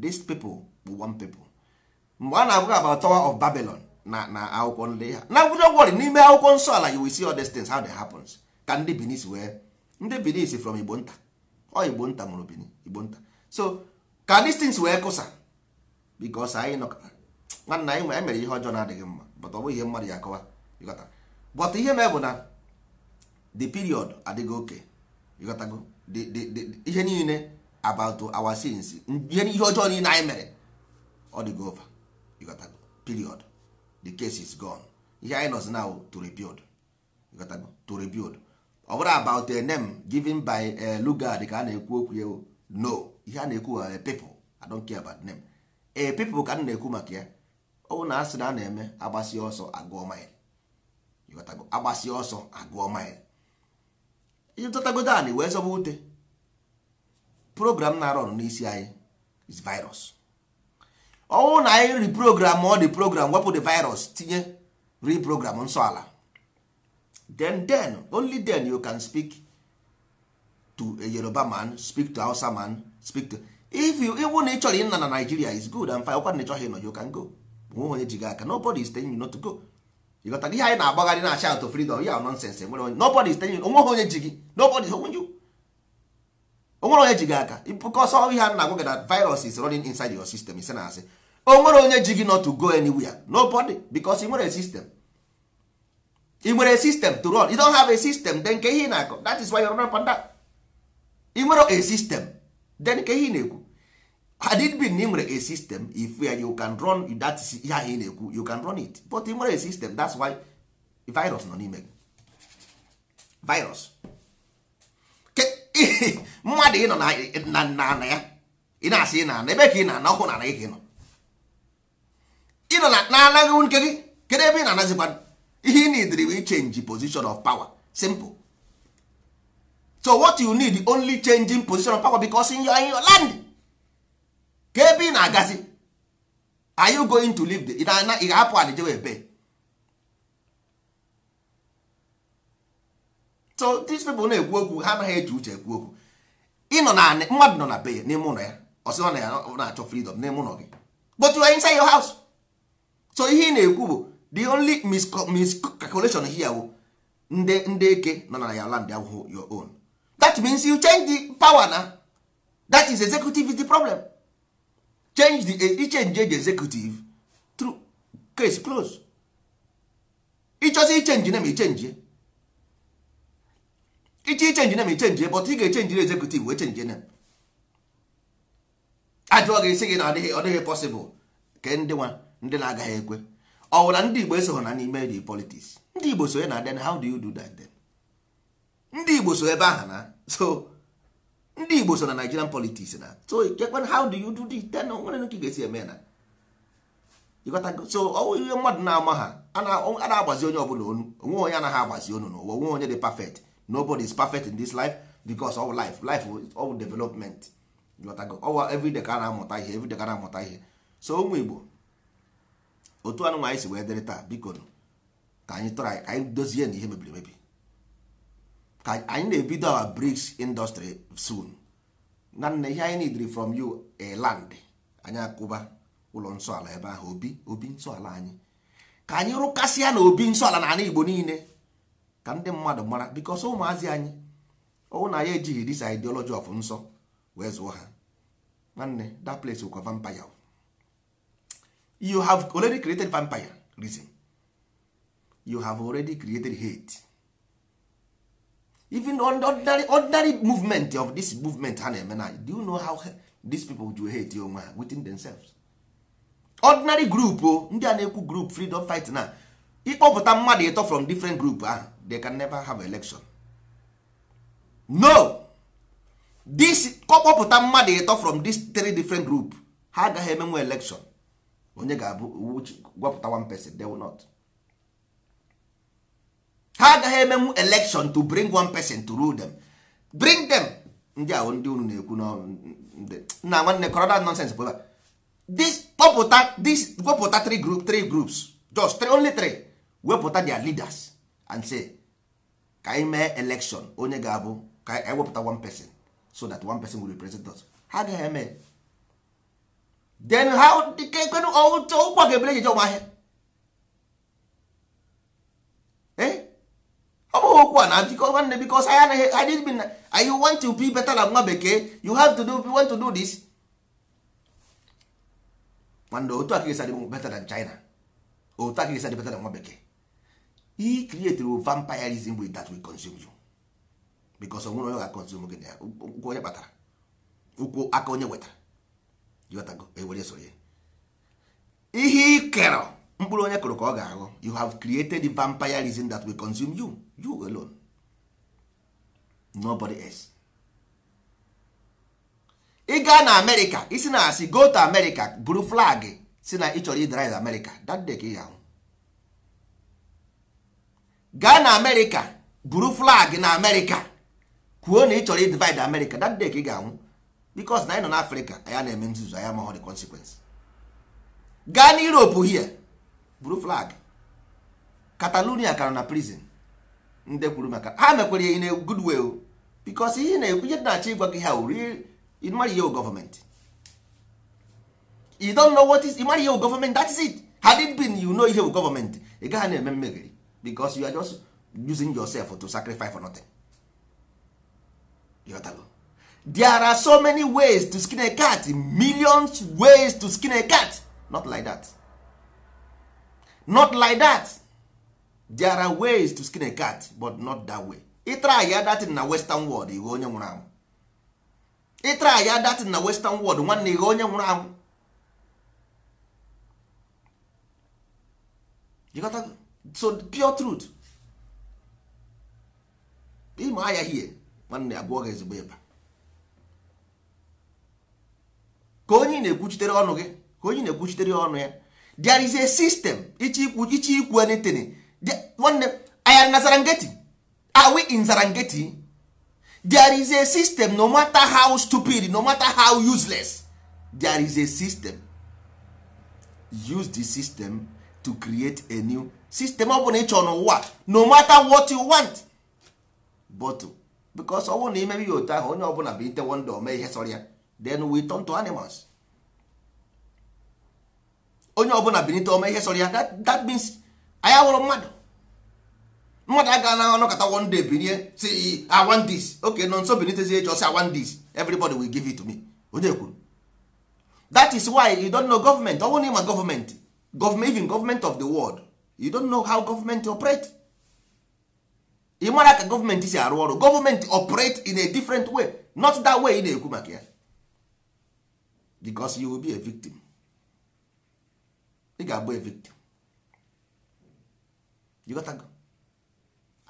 A: this people bụ one people mgbe a na-abụghị about tower of babylon na na akwụkwọ ndị ha na wụdo wọrị n'ime akwụkwọ nsọ ala you will see all these things how they happens ka ndị benin wee ndị benin from igbo nta ọ igbo nta mụrụ bini igbo nta so ka these things wee kụsa because anyị nọ nwanna anyị nwere e mere ihe ọjọọ na-adịghị mma but ọ bụ ihe mmadụ ya akọwa ịghọta but ihe mee bụ na the period adịghị oke ịghọtago ihe niile about our sins ihe ihe ọjọọ niile anyị mere ọ dị over you got to period the case is gone ihe anyị nọzi now to rebuild you got to rebuild ọ bụrụ about a uh, name given by uh, a lugard ka a na-ekwu okwu ya no ihe a uh, na-ekwu a people i don't care about name a people ka a na-ekwu maka ya ọ bụ na asị na a na-eme agbasi ọsọ agụọ mile you got to agbasi ọsọ agụọ mile ịtọtagodo anị wee zọba ute eh? program na-arọ n'isi anyị is virus ọnwụ na anyị reprogram ọ dị program wepụ the virus tinye reprogram nsọ ala then then only then you can speak to a Yoruba man speak to Hausa man speak to if you ịwụ na ị chọrọ ịna na Nigeria is good and fine ọkwa na ịchọghị ịnọ you can go nwe onye ji gị aka nobody is telling you not to go ịghọtara ihe anyị na-agbagharị na-acha out of freedom ya nonsense enwere onye nobody is telling you onweghị onye ji gị nobody is holding you onwere onye ji gị aka because ihe a na-agwa gị that virus is running inside your system ise na asị onwere onye ji gị not to go anywhere nobody because ị nwere a system ị nwere a system to run you don't have a system then ke ihe na-akọ that is why you're running panda ị nwere a system then ke ihe ị na-ekwu had it been na ị nwere a system if you can run that ihe ahụ ị na-ekwu you can run it but ị nwere a system that's why virus nọ n'ime gị virus mmadụ ịnọ na nna ya ị na-asị ị na-ana ebe ka ị na-ana ọkwụ na-ana gị ka ị nọ ịnọ na anaghị nke gị kedu ebe ị na-anazikwa ihe ị nidiri bụ change position of power simple so what you need only changing position of power because in your, in your land ka ebe ị na-agazi are you going to live the ị ga-apụ ala jewe ebe so these people na-ekwu okwu ha anaghị eji uche ekwu okwu ịnọ na mmadụ nọ na be ya n'ime ụlọ ya na ọ na-achọ freedom n'ime ụlọ gị but you are inside your house so ihe ị na-ekwu bụ the only miscalculation here bụ ndị ndị eke nọ na ya land abụghị your own that means you change the power na that is executive is the problem change the e, ichenji e eji executive through case close ịchọzi ichenji na ma ichenji iche ichenji nem ichenji but ị ga-echenji executive wee chenji nem ajụọ ga-esi gị na ọ dịghị possible ke ndị nwa ndị na-agaghị ekwe ọ bụla ndị Igbo esoghị na n'ime the politics ndị Igbo sonye na then how do you do that then ndị Igbo so ebe aha na so ndị Igbo so na Nigerian politics na so kekwe how do you do it then nwere nke ga-esi eme na so ihe mmadụ na-ama ha a na-agbazi onye ọbụla onu onwe onye anaghị agbazi onu n'ụwa onwe onye dị perfect nobody is perfect in this life because all life life all development oh, everyday ka a na-amụta ihe everyday ka a na-amụta ihe so ụmụ Igbo otu anụnụ anyị si wee dịrị taa biko ka anyị try anyị dozie na ihe mebiri emebi ka anyị na-ebido our bricks industry soon na ihe anyị nidiri from you a land anyị akụba ụlọ nsọala ebe ahụ obi obi nsọala anyị ka anyị rụkasịa na obi nsọala na ala Igbo niile ka ndị mmadụ mara bikos ụmụazị anyị ọwụ na ya ejighị dis ideology of nsọ wee zụọ ha nwanne that place wụkwa vampire you have already created vampire reason you have already created hate even ordinary, ordinary movement of this movement ha na-eme na do you know how these people do hate onwe ha within themselves ordinary group o ndị a na-ekwu group freedom fight na ịkpọpụta mmadụ ịtọ from different group ahụ they can never have election no this kọkpọpụta mmadụ ịtọ from this three different group ha agaghị emenwe election onye ga-abụ gwapụta one person they will not ha agaghị emenwu election to bring one person to rule them bring them ndị ahụ ndị unu na-ekwu na nwanne kọrọ that nonsense bụ this kpọpụta this gwapụta three group three groups just three, only three wepụta their leaders and say ka anyị election onye ga-abụ ka anyị wepụta one person so that one person will represent us ha agaghị eme then how kekwenụ ụkwa ga-ebere ejeje ụmụ ahịa eh? ọ okwu a na biko nwanne biko anyị anaghị anyị bi na want to be better na nwa bekee you have to do want to do this nwanne otu aka esi better than China otu better nwa bekee he created vampirism with that we consume you because onwere onye ga-consume gị na ụkwụ onye kpatara ụkwụ aka onye wetara jọtago ewere soro ya ihe ị kerọ mkpụrụ onye kụrụ ka ọ ga-aghọ you have created the vampirism that will consume you you alone nobody else ị gaa na amerịka isi na asị go to amerịka buru flag si na ị chọrọ idrive amerịka that day ka ị ga-ahụ gaa na amerịka buru flag na amerịka kwuo na ị chọrọ divide America that day ka ị ga-anwụ bikos na anyị nọ n'afrịka ya na-eme nzuzu anyị amaghọ the consequence gaa na europe hie buru flag catalonia ka na prison ndị kwuru maka ha mekwere in a good way bikos ihe na-ekwu ihe na-achọ ịgwa gị ha uri ihe gọọmenti ihe gọọmenti na-eme mmegheri because you are just using yourself to sacrifice for nothing Yotago. there are so many ways to skin a cat millions ways to skin a cat not like that not like that there are ways to skin a cat but not that way ịtry ya datin na western world ighe onye nwụrụ anwụ ịtry ya datin na western world nwanne ighe onye nwụrụ anwụ so pure truth ịma ahịa hie nwanne abụọ ga ezigbo ịba ka onye na-ekwuchitere ọnụ gị ka onye na-ekwuchitere ọnụ ya there is a system ichi ikwu ichi ikwu anything nwanne aya na Zarangeti are we in Zarangeti there is a system no matter how stupid no matter how useless there is a system use the system to create a new sistem ọ bụla ị chọrọ n'ụwa no matter what you want but ọ ọnwụ na ya otu ahụ onye ọbụla bụ itewo ndụ ome ihe sọrọ ya then we turn to animals onye ọbụla binite ome ihe sọrọ ya that means anyị awụrụ mmadụ mmadụ aga na anọkọta one day binie si I want nọ nso binitezie echi ọsị I everybody will give it to me onye kwuru that ọ you don't know how government operate ị mara ka government si arụ ọrụ government operate in a different way not that way ị na-ekwu maka ya because you will be a victim ị ga-abụ a victim you got go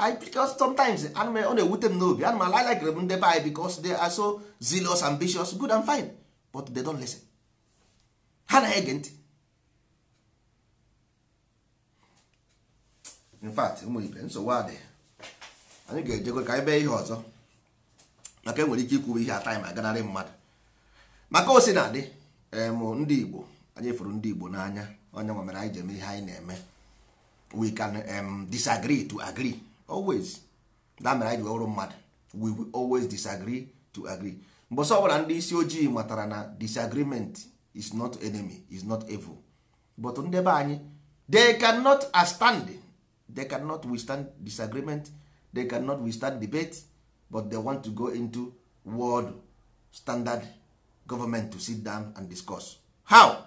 A: I because sometimes ana m ọ na-ewute m n'obi ana m ala likere m ndị be anyị because they are so zealous ambitious good and fine but they don't listen ha na-ege ntị in fact nwere nsogbu adị anyị ga-ejekwe ka anyị bee ihe ọzọ maka enwere ike ikwube ihe ataị ma ganarị mmadụ maka osi na adị ndị Igbo anyị fụrụ ndị Igbo n'anya onye nwa mere anyị ji ihe anyị na-eme we can um, disagree to agree always da mere anyị ji mmadụ we will always disagree to agree mbọsọ ọbụla ndị isi ojii matara na disagreement is not enemy is not evil but anyị they cannot stand they cannot withstand disagreement they cannot withstand debate but they want to go into world standard government to sit down and discuss how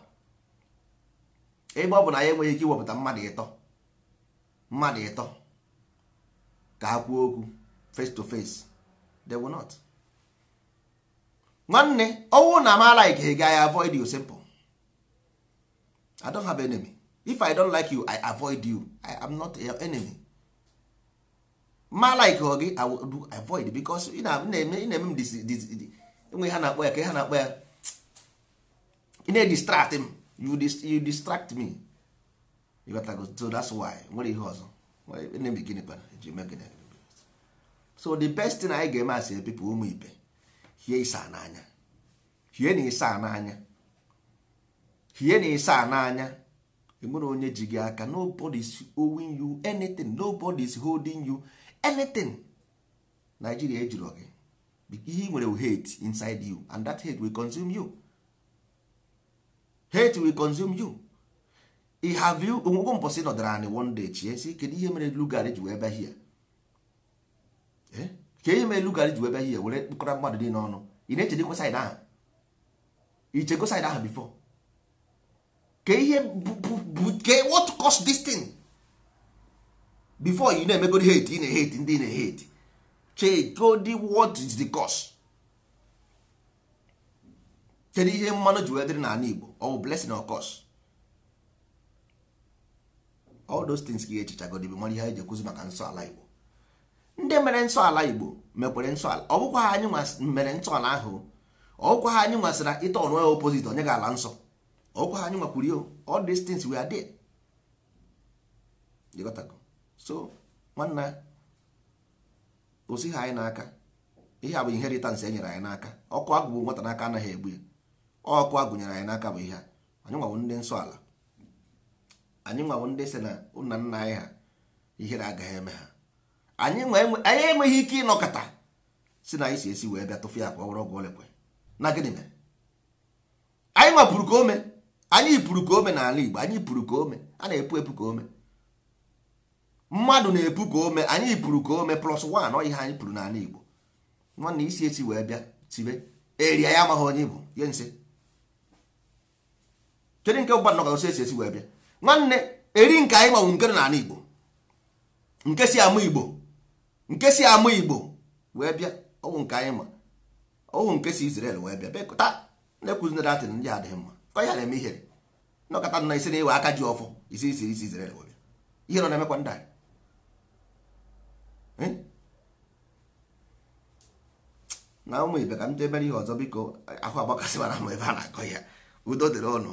A: ebe ọ bụ na ya enweghị ike iwepụta mmadụ ịtọ mmadụ ịtọ ka ha kwuo okwu face to face they will not nwanne ọnwụ na amaala ike ga ya avoid you simple i don't have enemy if i don't like you i avoid you i am not your enemy ma like gị i will do avoid because ị na-eme na-eme m enwe ha na-akpọ ya ka ha na-akpọ ya ị na-edistract m you distract me you got to go so that's why nwere ihe ọzọ enemy gịnị kpara eji eme gịnị so the best thing anyị ga-eme asị people ụmụ ibe hie ịsa n'anya hie na ịsa n'anya hie na ịsa n'anya enwere onye ji gị aka nobody is owing you anything nobody is holding you anything Nigeria ejirọ gị ihe nwere hate inside you and that hate will consume you hate will consume you i have you onwegwo mbọsị nọdara anyị one day chie si kedu ihe mere Lugard ji wee be hia ee ka ihe mere Lugard ji wee be hia were kpụkọrọ mmadụ dị n'ọnụ ị na-echedekwa saịd ahụ ichego saịd ahụ before ka ihe ke what cause this thing before you na-emegodi hate ị na-ehate ndị na-ehate chegodi what is the cost? kedu ihe mmanụ ji wee dịrị n'ala Igbo ọ bụ blessing or cost? all those things ka ihe echichagodi bụ mara ihe anyị ji ekwuzi maka nsọ ala Igbo ndị mere nsọ ala Igbo mekwere nsọ ala ọ anyị mere nsọ ala ahụ ọ bụkwa ha anyị nwasịra ịta ọnụ opposite onye ga ala nsọ ọkwa anyị nwakwuru all these things we are there jikọtago so nwanna osi anyị n'aka ihe a bụ inheritance e nyere anyị n'aka ọkụ agụ bụ nwata n'aka anaghị egbu ya ọkụ agụ nyere anyị n'aka bụ ihe a anyị nwawo ndị nsọ ala anyị nwawo ndị si na nna nna anyị ha ihere agaghị eme ha anyị enweghị ike ịnọkọta si na anyị si esi wee bịa tụfụ ya ka ọ were ọgwụ olekwe na gịnị mere anyị nwapụrụ ka o mee anyị pụrụ ka ome n'ala Igbo anyị pụrụ ka ome a na-epu epu ka ome mmadụ na-epu ka ome anyị pụrụ ka ome plus one ọ ihe anyị pụrụ n'ala Igbo nwanne isi esi wee bịa tibe eria ya amaghị onye bụ ye nse kedu nke ụba nnọkọ esi esi wee bịa nwanne eri nke anyị manwụ nke n'ala Igbo nke si ama Igbo nke si ama Igbo wee bịa ọwụ nke anyị ma ọwụ nke si Israel wee bịa bekọta na-ekwuzinere atịn ndị adịghị mma ka ya na-eme ihere nọkọta nọ isi na-ewe aka ji ọfọ isi isi isi na obi ihe nọ na-emekwa ndị anyị na ụmụ ibe ka m debere ihe ọzọ biko ahụ agbakasị mara ma ebe a na-akọ ya udo dịrị ọnụ